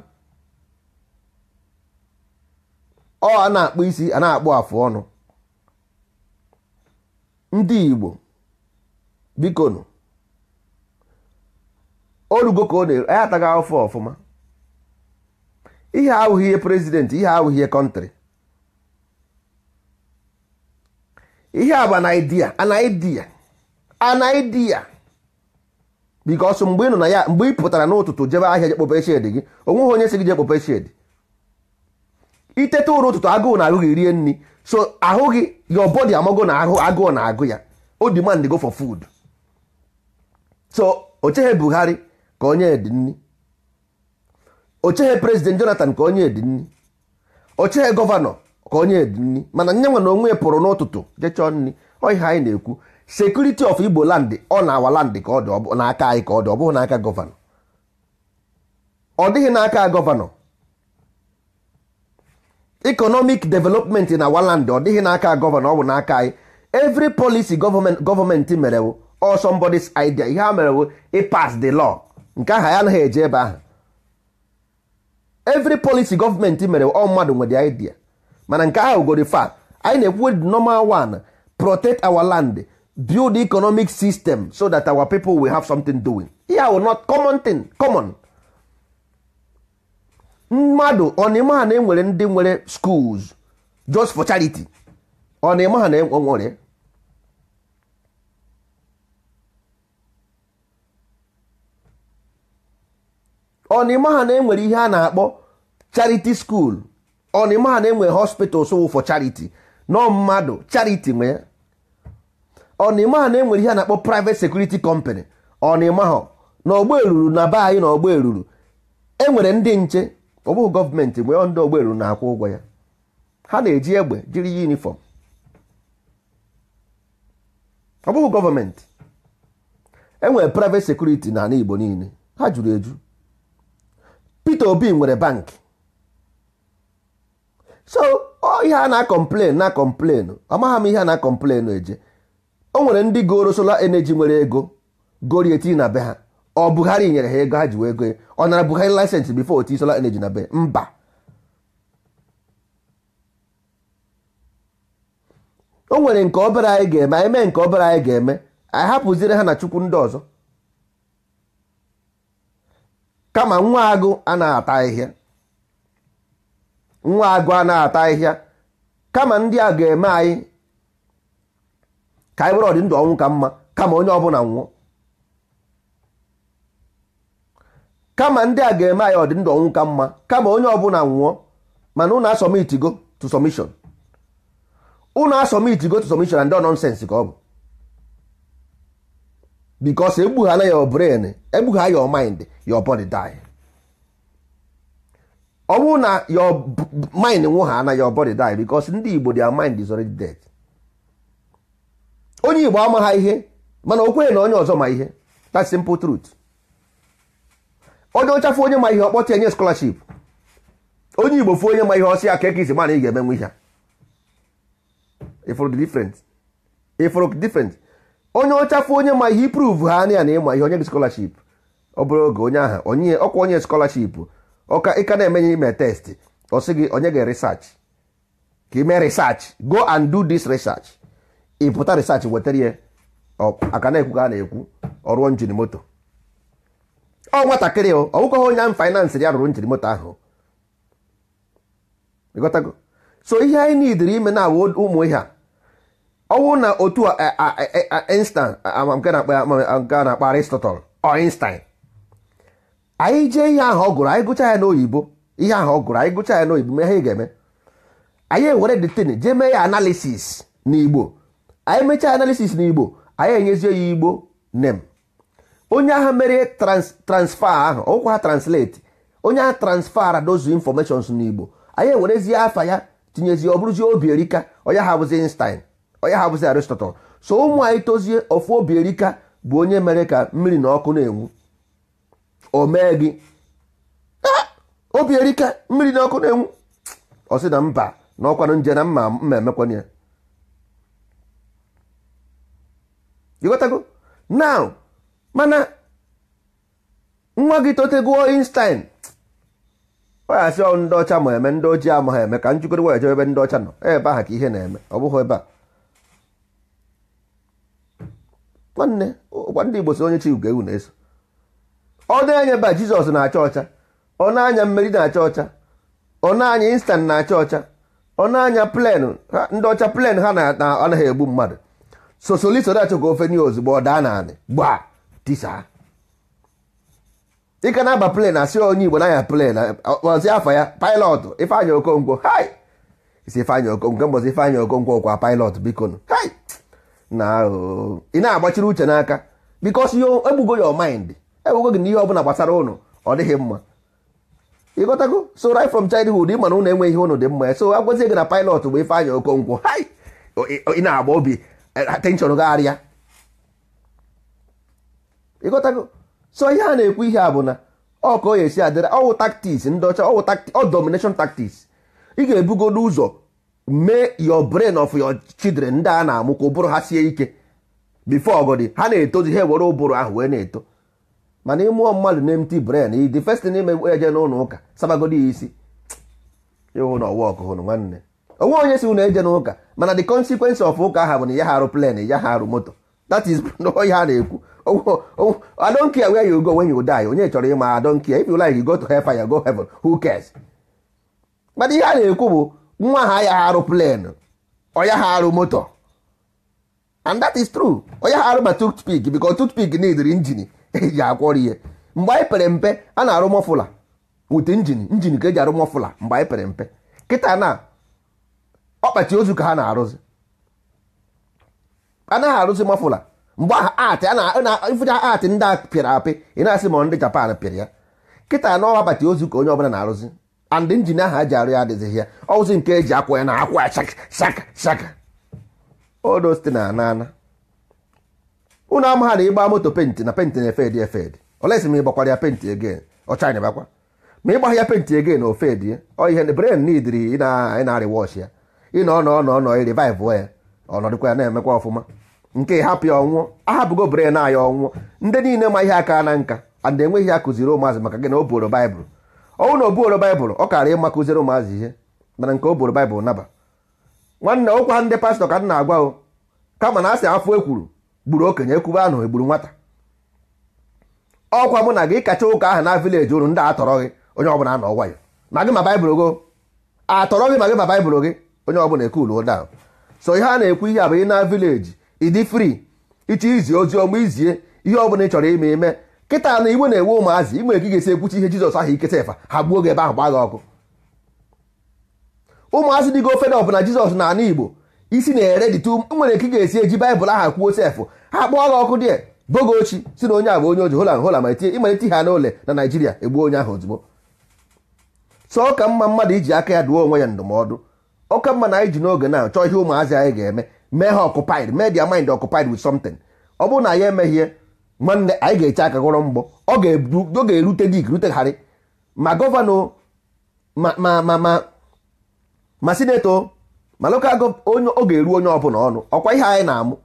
ọ a na-akpụ isi a na-akpụ afụ ọnụ ndị igbo bikonu orugo ka ọ na-eru anyị ataghị afọ ọfụma ihe ahụghị ihe prezident ihe awụghị ihe kọntrị ihe a bụ anaidia anaidia anaidia bikos mgbe ị nọ na ya mgbe ị pụtara n'ụtụtụ jebe ahịa je kpope gị onweghị onye si gị je kpope shedi itete ụtụtụ agụụ na ahụ gị rie nri so ahụ gị your body amago na ahụ agụụ na agụ ya o demand go for food so o cheghị Buhari ka onye dị nri ocheghị prezident jonathan ka onye dị nri ocheghị gọvanọ ka onye dị nri mana nyenwa na onwe pụrụ n'ụtụtụ jechọ nri oihe anyị na-ekwu sekuriti of igbo land ọ na awa land ka ọ dị n'aka anyị ka ọ dị ọ bụghị n'aka gọvanọ ọ dịghị n'aka gọvanọ economic development na awa ọ dịghị n'aka gọvanọ ọ bụ n'aka anyị evri policy gọọmenti mere bụ or somebody's ihe ha mere bụ ịpas the law nke aha ya anaghị eje ebe ahụ every policy government mere ọ mmadụ nwere idea mana nke ahụ gori fa anyị na-ekwu normal one protect our land build economic system so that our people will have something doing ya o not common thing common mmadụ ọnịmaha na enwere e ndị nwere schools just for charity ọnịmaha na enwere ọnịma ha na-enwere ihe a na-akpọ charity school ọnịma ha na-enwe hospitals wụ for charity nọ mmadụ charity nwe ya ọnịma ha na-enwere ihe a na-akpọ private security company ọnịma ha na ọgbọ eruru na be anyị na ọgbọ eruru enwere ndị nche ọ bụghị gọọmenti nwee ndị ọgbọ eruru na-akwụ ụgwọ ya ha na-eji egbe jiri yunifọm ọ bụghị gọọmenti enwere private security na ala Igbo niile ha juru eju Peter Obi nwere bank so ihe a na-akọmplen na ọ amagha m ihe a na-akọmplen eje o nwere ndị goro solar energy nwere ego gori etinye na be ha ọ Buhari nyere ha ego ha ji wee go ọ nara Buhari lisensị before oti solar energy na be mba o nwere nke obere anyị ga-eme anyị mee nke obere anyị ga-eme anyị hapụziri ha na chukwu ndị ọzọ kama nwa agụ anaghị ata ahịhịa nwa agụ ata ahịhịa kama ndị a ga-eme anyị ka anyị were ọdị ndụ ọnwụ ka mma kama onye ọbụla nwụọ kama ndị a ga-eme anyị ọdị ndụ ọnwụ ka mma kama onye ọbụla nwụọ mana unu asọmitigo to submission unu asọmitigo to submission and nonsense ka ọ bụ because egbughana your brain egbugha your mind your body die ọ bụrụ na your mind nwụha na your body die because ndị Igbo their mind is already dead onye Igbo ama ha ihe mana o kwenye na onye ọzọ ma ihe that simple truth onye ọchafụ onye ma ihe ọkpọta enye scholarship onye Igbo fụ onye ma ihe ọsị aka ekezi mana ị ga-emenwe ihe a ifụrụ different ifụrụ onye ọchafụ onye ma ihe iprove ha na ya na ịma ihe onye gị scholarship ọ bụrụ oge onye aha onye ọkwa onye scholarship ọka ịka na-emenye ime test ọ sị gị onye gị research ka ime research go and do this research ịpụta research wetara ya aka na-ekwu ka a na-ekwu ọrụ njiri moto ọ nwatakịrị ọ ọwụkọghị onye ahụ finance ya rụrụ njiri moto ahụ ịghọtago so ihe anyị n'idiri ime na awụ ụmụ ihe a ọwụ na otu Einstein nke na-akpa Aristotle ọ Einstein anyị jee ihe ahụ ọ anyị gụcha ya n'oyibo ihe ahụ ọ gụrụ anyị gụcha ya n'oyibo ihe ga-eme anyị ewere detin jee mee ya analisis n'igbo anyị mechaa analisis n'igbo anyị enyezie ya igbo nem onye agha mere transfa ahụ ọkwa ha translate onye agha transfara dozu informations n'igbo anyị ewerezie afa ya tinyezie ọ bụrụzie obi erika onye ha bụzi Einstein onye ha bụzi arịstọtọ so ụmụ anyị tozie ofu obi erika bụ onye mere ka mmiri na ọkụ na-enwu o mee gị ah! obi erika mmiri na ọkụ na-enwu ọ sị na mba na ọkwanụ nje na mma mma emekwanye ya ịghọtago now mana nwa gị totegoo Einstein ọ ndị ọcha ma eme ndị ojii ama ha eme ka njikọrịwa ejebe ebe ndị ọcha nọ ebe aha ka ihe na-eme ọ bụghị ebe a nwanne ụkwa ndị Igbo si onye chi ugo ewu na-eso ọ na-enye ba Jizọs na-acha ọcha ọ na-anya mmeri na-acha ọcha ọ na-anya na-acha ọcha ọ na-anya plen ndị ọcha plen ha anaghị egbu mmadụ sosoliso na-achọ ka ofe nye ozugbo ọ daa na gbaa tisa ịka na-aba plen asị onye Igbo na-anya plen ọzi afọ ya pilọtụ ifeanya Okonkwo hai isi Ifeanyị Okonkwo mbọzi Ifeanyị Okonkwo kwa pilọtụ biko hai na oh. ị na-agbachiri uche n'aka bikos egbugo your mind egbugo gị n'ihe ọbụla gbasara ụnụ ọ dịghị mma ịghọtago so right from childhood ị mana ụnụ enweghị ihe ụnụ dị mma so agwazie gị na pilot bụ ife anya okonkwo ị na-agba obi e, attention gagharịa ịgotago so ihe a na-ekwu ihe a bụ na ọ ka ya esi adịra ọwụ taktiks ndị ọcha ọwụ domination taktiks ị ga ebugo n'ụzọ. mee your brain of your children ndị a na-amụ ka ụbụrụ ha sie ike before ọgọdị ha na-etozi ha ewere ụbụrụ ahụ wee na-eto mana ịmụọ mmadụ na empty brain the first thing ime eje n'ụlọ ụka sabagodi ya isi ịhụ na ọwa hụrụ nwanne onwe onye si ụlọ eje n'ụka mana the consequence of ụka ahụ bụ na ya ha arụ plen ya harụ moto that is ihe a na-ekwu I don't care where you go when you die onye chọrọ ịma I don't care if you go to hellfire go mana ihe a na-ekwu bụ nwa ha ya arụ plen ọya ha arụ moto and that is true onye ha arụ ma toothpick because toothpick neediri injin eji akwọrọ ihe mgbe anyị pere mpe a na-arụ mọfụla wit injin injin ka eji arụ mọfụla mgbe anyị pere mpe kịta na ọkpachi ozu ka ha na-arụzi anaghị arụzi mọfụla mgbe atị ifụcha atị ndị a pịara apị ị na-asị ma ndị Japan pịara ya kịta na ọkpachi ozu ka onye ọbụla na-arụzi and injin ahụ a ji arụ ya adịghịzị ya ọwụzi nke eji akwa ya na akwa shaka shaka odosite na anana unu amagha na ịgba moto penti na penti na efedi efedi olesi ma ịgbakwara ya penti egen anyị bakwa ma ịgbagha ya penti egen na ofedi ọ ihe bren nidiri na-arị wọsh ya ị na ọnọ ọnọ ọnọ rivivụ ya ọnọdụkwa ya na-emekwa ọfụma nke hapụ ya ọnwụọ ahapụgo bren anyị ọnwụọ ndị niile ma ihe aka na nka and enweghị ya kụziri ụmụazị maka gị na o boro baịbụl ọnwụ na obuoro baịbụl ọ kara ịma kụziere ụmụazị ihe mana nke o boro baịbụl naba nwanne ụkwa ndị pastọ ka m na-agwa o kama na asị afọ ekwuru gburu okenye ekwube ahụ egburu nwata ọkwa mụ na gị kacha ụka ahụ na vileji unu ndị atọrọ gị onye ọbụla a na ya ma gị ma baịbụl gị atọrọ gị ma gị ma baịbụl gị onye ọbụla ekuluo ụda so ihe a na-ekwu ihe abụ ị na vileji ịdị fri ịchọ izi ozi ọma izie ihe ọbụla ị chọrọ ime ime kịta na igwe na-enwe ụmụazị igwe ka ị esi ekwuchi ihe jizọs ahụ iketa efa ha gbuo gị ebe ahụ gbaa gị ọkụ ụmụazị dịgo ofede ọbụla jizọs na ana igbo isi na-ere dịtu nwere ka ga-esi eji baịbụl aha kwuo sefụ ha kpụọ gị ọkụ dị bogo ochi si na onye a bụ onye oji holan hola ma ịmalite ha n'ụlọ na naijiria egbuo onye ahụ ozugbo sọ ka mma mmadụ iji aka ya duo onwe ya ndụmọdụ ọka mma na anyị ji n'oge na chọọ ihe ụmụazị anyị ga-eme mee ha ọkụpaid mind ọkụpaid with something ọ bụrụ na ya emeghie nwanne anyị ga-eche aka gọrọ mgbọ ọ ga-erute dik rutegharị ma gọvanọ ma ma ma ma ma sineto ma lokal onye ọ ga-eru onye ọbụla ọnụ ọkwa ihe anyị na-amụ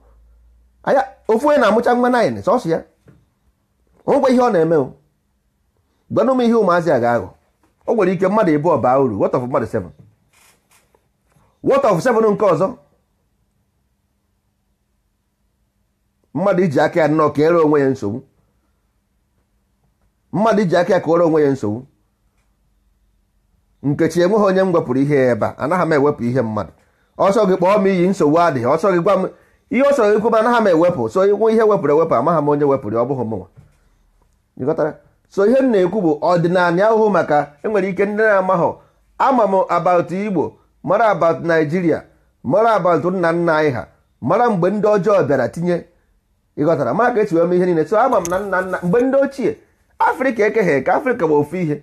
anya ofu onye na-amụcha nwa naịn sọsọ ya onwekwa ihe ọ na-eme o gwanụ m ihe ụmụazị a ga-aghọ o nwere ike mmadụ ịbụ ọba uru what of mmadụ seven what of seven nke ọzọ mmadụ iji aka ya nnọọ ka ere onwe ya nsogbu mmadụ iji aka ya ka ere onwe ya nsogbu nkechi enweghị onye m wepụrụ ihe ebe a anaghị m ewepụ ihe mmadụ ọsọ gị kpọọ m iyi nsogbu adịghị ọsọ gị gwa m ihe ọ sọrọ ikwu anaghị m ewepụ so nwe ihe wepụrụ ewepụ amaghị m onye wepụrụ ọ bụghị mụnwa ịghọtara so ihe m na-ekwu bụ ọdịnala ahụhụ maka enwere ike ndị na-amaghọ ama m abat igbo mara abat naijiria mara abat nna nna anyị ha mara mgbe ndị ọjọọ bịara tinye ịghọtara ma ka esi wee ihe niile so ama m na nna nna mgbe ndị ochie afrịka ekeghị eke afrịka bụ ofu ihe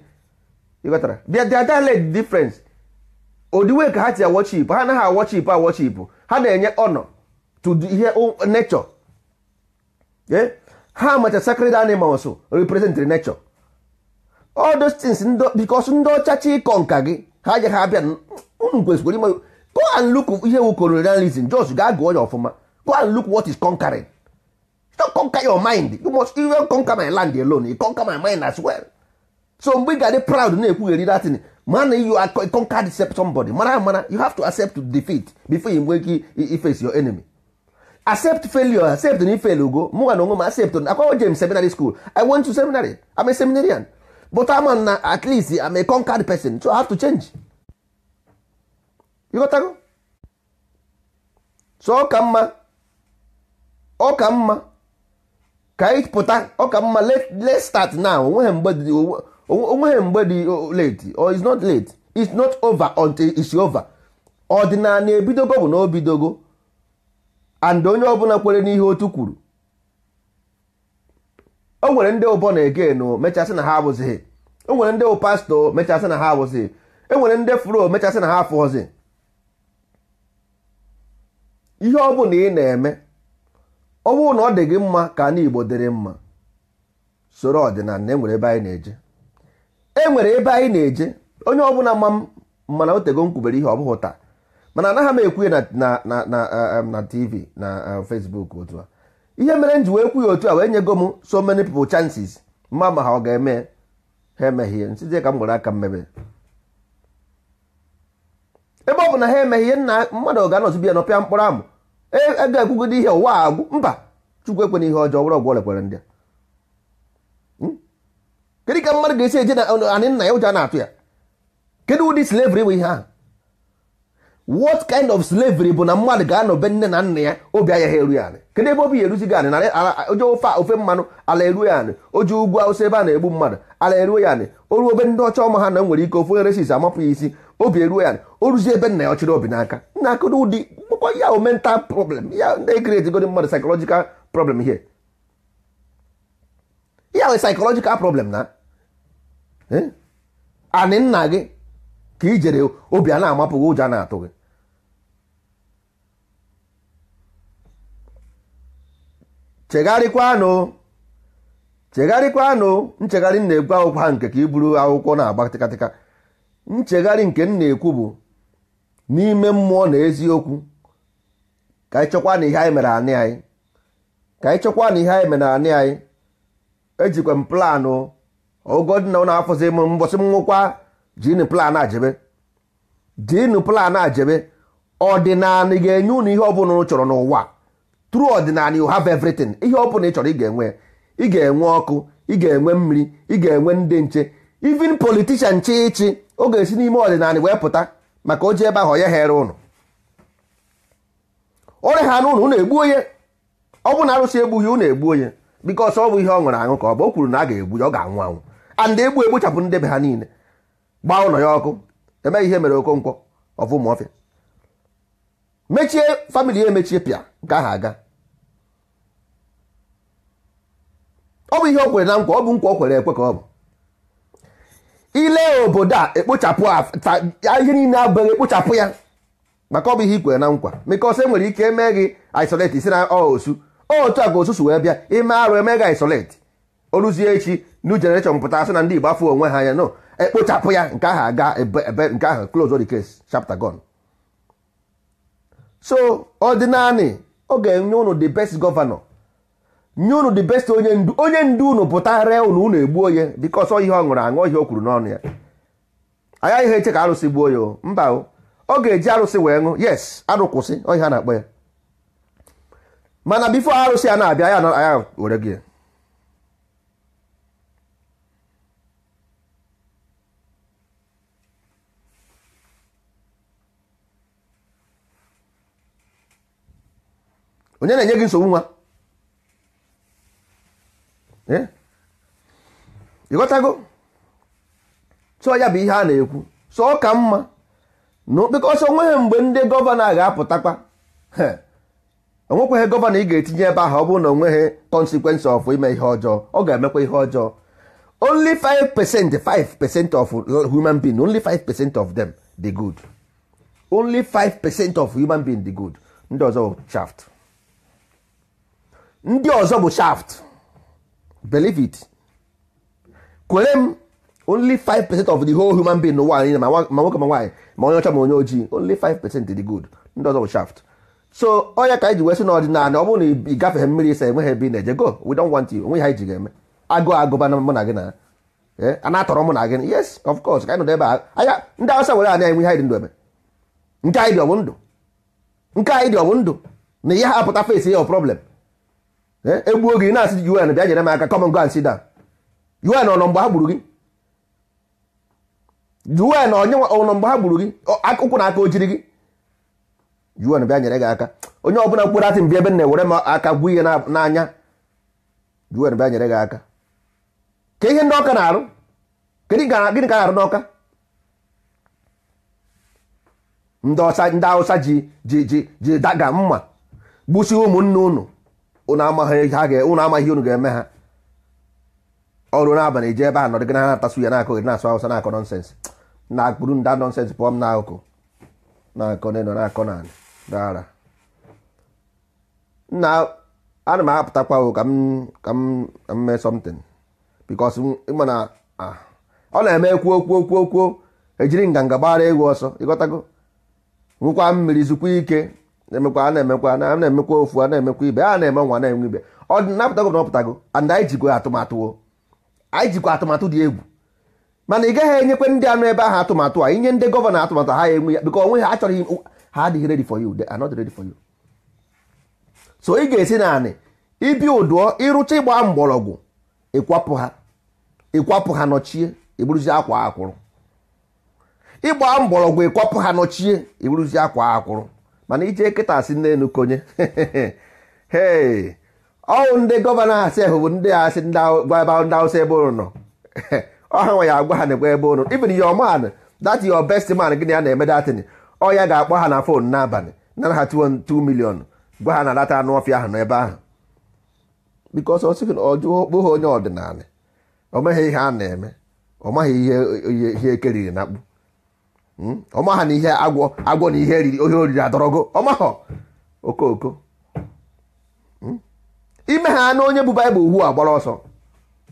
ịghọtara their dialect difference odiwe ka ha ti awọchip ha anaghị awọchip awọchip ha na-enye ọnọ to ihe nature eh? ha macha sacred animals represent nature all those things because ndị ọcha chi ịkọ nka gị ha je ha abịa unu mm, mm, kwesịkwara ime go and look ihe wu colonialism jos ga gụọ ya ọfụma go and look what is conquering don't conquer your mind you must even conquer my land alone you conquer my mind as well so mgbe ị ga-adị proud na-ekwugheri datin mana you are conquered somebody mara ah, mara ah, you have to accept defeat before you nwee ike face your enemy accept failure accept na ifel ugo mụnwa na onwe m accept akwago James seminary school I want to seminary I'm a seminarian but ama na ah, at least I'm a conquered person so I have to change you so ọ ka mma ọ ka mma ka anyị pụta ọ ka mma let's start now onweghị mgbe dị late or it's not late it's not over until it's over ọdịnala ebidogo bụ na obidogo and onye ọbụla kwere n'ihe otu kwuru o nwere ndị ụbọ na-ege no mechasị na ha abụzighị o nwere ndị pastọ mechasị na ha abụzighị e nwere ndị furo mechasị na ha afụghọzi ihe ọ bụla ị na-eme ọ bụrụ na ọ dị gị mma ka ndị Igbo dịrị mma soro ọdịnala enwere ebe anyị na-eje enwere ebe anyị na-eje onye ọbụla ma mana otego tego nkwubere ihe ọ bụghị taa mana anaghị m ekwu na na tv na um, um, Facebook otu a ihe mere m ji wee kwu ya otu a wee nyego m so many people chances mma ma ha ọ ga-eme ha emeghie nsizie ka m gwara aka mmebe ebe ọ bụ na ha emeghie nna mmadụ ga-anọzibi ya nọ pịa mkpọrọ amụ ego ekwugodo ihe ụwa agwụ mba chukwu ekwena ihe ọjọọ were ọgwụ lekwere ndị hmm? kedu ka mmadụ ga-esi eje na anị nna ya ụja na-atụ ya kedu ụdị slavri bụ ihe ahụ what kind of slavery bụ na mmadụ ga-anọbe nne na nna ya obi anya ha eru ya anị kedu ebe obi ya eruzi gị anị oje ofe ofe mmanụ ala eruo ya anị oje ugwu awụsa ebe a na-egbu mmadụ ala eruo ya anị o ruo ndị ọcha ọma ha na nwere ike ofu nyeresis amapụ ya isi obi eruo ya o ruzi ebe nna ya ọchịrị obi n'aka nna akụrụ ụdị mkpụkọ ya o mental problem ya ndị create godi mmadụ psychological problem here ya we psychological problem na eh? anị nna gị ka ijere obi a na-amapụghị ụjọ na-atụ gị chegharịkwanụ chegharịkwanụ nchegharị na-egwu akwụkwọ ha nke ka i buru akwụkwọ na-agba tịkatịka nchegharị nke m na-ekwu bụ n'ime mmụọ na eziokwu ka anyị chọkwa na ihe anyị mere anị anyị ka anyị chọkwa na ihe anyị mere anị anyị ejikwa m planụ ogodi na afọzi m mbọsị m nwụkwa jinu plan ajebe jinu planụ ajebe ọdịnala ga-enye unu ihe ọbụla ụ chọrọ n'ụwa true ọdịnala you have everything ihe ọbụla ị chọrọ ị ga-enwe ị ga-enwe ọkụ ị ga-enwe mmiri ị ga-enwe ndị nche even politician chi ọ ga-esi n'ime ọdịnala wee pụta maka oji ebe ahụ onye ghere ụnụ ọrịa ha na ụnụ ụnụ egbu onye ọ bụ na arụsị egbughị ya ụnụ egbu onye bikọs ọ bụ ihe ọ ṅụrụ aṅụ ka ọ bụ o kwuru na a ga-egbu ya ọ ga-anwụ anwụ and egbu egbuchapụ ndebe ha niile gbaa ụlọ ya ọkụ emeghị ihe mere okonkwo ọfụmaọfịa mechie famili ya emechie pịa nke ahụ aga ọ bụ ihe o kwere na nkwa ọ bụ nkwa o kwere ekwe ka ọ bụ ile obodo a ekpochapụ ihe niile abụghị ekpochapụ ya maka ọ bụ ihe ikwere na nkwa because enwere nwere ike eme gị isolate isi na osu otu a ka osusu wee bịa ime arụ eme gị isolate oruzie echi new generation pụta asị na ndị Igbo afọ onwe ha anya no ekpochapụ ya nke ahụ aga ebe nke ahụ close the case chapter gone so ọdịnanị ọ ga-enye ụnụ the best governor nye unu the best onye ndu onye ndu unu pụta ree unu unu egbuo ya dịka ọsọ ihe ọ ṅụrụ aṅụ ihe o kwuru n'ọnụ ya anya ihe eche ka arụsị gbuo ya mba o ọ ga-eji arụsị wee ṅụ yes arụ kwụsị ọ a na-akpọ ya mana bifo arụsị a na-abịa ya aya were gị onye na-enye gị nsogbu nwa ịghọtago eh? so ya bụ ihe a na-ekwu so ọ ka mma na okpekọsọ onweghị mgbe ndị gọvanọ ga-apụtakwa onwekwaghị gọvanọ ị ga-etinye ebe ahụ ọ bụrụ na onweghị consequence of ime ihe ọjọọ ọ ga-emekwa ihe ọjọọ only 5 percent 5 percent of human being only 5 percent of them dị good only 5 percent of human being dị good ndị ọzọ bụ shaft ndị ọzọ bụ shaft believe it kwere m only 5% of the whole human being n'ụwa anyị ma nwoke ma nwaanyị ma onye ọcha ma onye ojii only 5% dị good ndị ọzọ bụ shaft so onye ka anyị ji wee sị n'ọdịnala ọ bụrụ na ị gafeghị mmiri ịsa enweghị ebe na-eje go we don't want you onwe ha iji ji ga-eme agụ agụba na mụ na gị na a na-atọrọ mụ na gị yes of course ka anyị nọdụ ebe anya ndị awụsa were anya enwe ihe anyị dị ndụ eme. nke anyị dị ọ ndụ nke anyị dị ọ ndụ na ihe ha apụta face ya ọ problem Eh, egbuo gị na-asị UN bịa nyere m aka come and go and sit down UN ọnọ mgbe ha gburu gị UN ọnọ mgbe ha gburu gị akụkwụ na aka ojiri gị UN bịa nyere gị aka onye ọbụla mkpụrụ atị mbi ebe na-ewere m aka gwụ ihe n'anya UN bịa nyere gị aka ka ihe ndị ọka na-arụ gịnị ka a na-arụ n'ọka ndị Hausa ji daga mma gbusi ụmụnne unu. unu amaghị unu ga-eme ha ọrụ n'abalị eji ebe a nọdụ gị na ha na ya na-akọ gị na-asụ awụsa na-akọ nọnsensị na akpụrụ nda nọnsensị pụọ m n'akụkụ na-akọ n'elu na-akọ n'ala dara nna ana m apụtakwa ka m ka m mee something because ịma na ọ ah. na-eme ekwu okwu okwu okwu ejiri nganga gbara e egwu ọsọ ịghọtago nwekwa mmiri zukwa ike na emekwa a na-emekwa na na-emekwa ofu a na-emekwa ibe a na-eme nwa na-enwe ibe ọ dị napụtago na ọpụtago and anyị jikwa atụmatụ anyị jikwa atụmatụ dị egwu mana ị gaghị enyekwe ndị anụ ebe ahụ atụmatụ a inye ndị gọvanọ atụmatụ ha enwe ya bikọ onwe ha achọghị ha adịghị ready for you they are not ready for you so ị ga-esi naanị ibi ụdụọ ịrụcha ịgba mgbọrọgwụ ịkwapụ ha ịkwapụ ha nọchie iburuzi akwa akwụrụ ịgba mgbọrọgwụ ịkwapụ ha nọchie iburuzi akwa akwụrụ mana ije nkịta asị n'elu konye ee ọwụ ndị gọvanọ asị ahụ bụ ndị asị gwa ebe ndị awụsa ebe ụnụ nọ ọha nwa ya agwa ha na egwa ebe ụnụ ibiri your man that your best man gị na ya na-eme datin ọ ga-akpọ ha na fon n'abalị nara ha tuo 2 milion gwa ha na lata anụ ọfịa ahụ n'ebe ahụ bikos ọ sịghị na ha onye ọdịnala ọ meghị ihe a na-eme ọ maghị ihe ihe ekeriri e na akpụ Hmm? ọmaha na ihe agwọ agwọ na ihe riri ohe oriri adọrọgo ọmaha okooko hmm? ime ha na onye bụ baịbụl ugbu a gbara ọsọ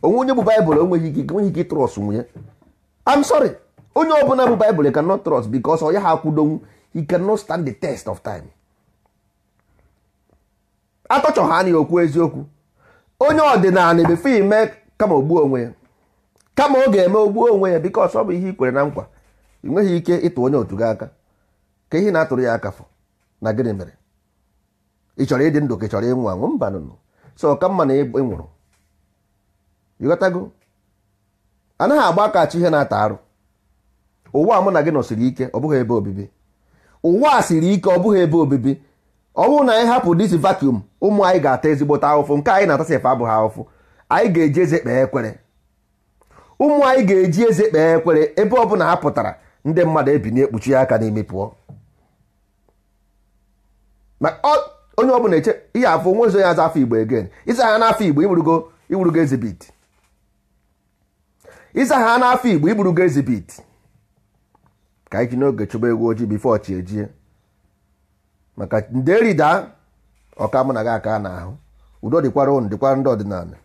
onwe onye bụ baịbụl onweghị ike enweghị ike nwunye I'm sorry onye ọbụla bụ baịbụl cannot trust because ọ ya ha akwụdonwu he cannot stand the test of time atọchọ ha okwu eziokwu onye ọdịnala ebefe ime kama ogbuo onwe ya kama ọ ga-eme ogbuo onwe ya because ọ bụ ihe i kwere na nkwa ị nweghị ike ịtụ onye otu gị aka ka ihe na-atụrụ ya aka fọ na gịnị mere ị chọrọ ịdị ndụ ka ị chọrọ ịnwụ anwụ mba nụnụ so ọka mma na ị ịghọtago anaghị agba aka chi ihe na-ata arụ ụwa mụ na gị nọsiri ike ọ bụghị ebe obibi ụwa a siri ike ọ bụghị ebe obibi ọ na anyị hapụ dis vacuum ụmụ anyị ga-ata ezigbote ahụfụ nke anyị na-atasi efe abụghị ahụfụ anyị ga-eji eze kpee ekwere ụmụ anyị ga-eji eze kpee ekwere ebe ọ bụla ha pụtara ndị mmadụ ebinye ekpuchi ya aka n'imi pụọ onye ọ bụla eche ihe afọ nwe ya aza afọ igbo again ịza ha n'afọ igbo igburugo igburugo ezibit ịza ha n'afọ igbo igburugo ezibit ka anyị ji n'oge chụba egwu ojii bifo ọchị ejie maka nde rida ọka mụ na gị aka n'ahụ udo dịkwara ụnụ dịkwara ndị ọdịnala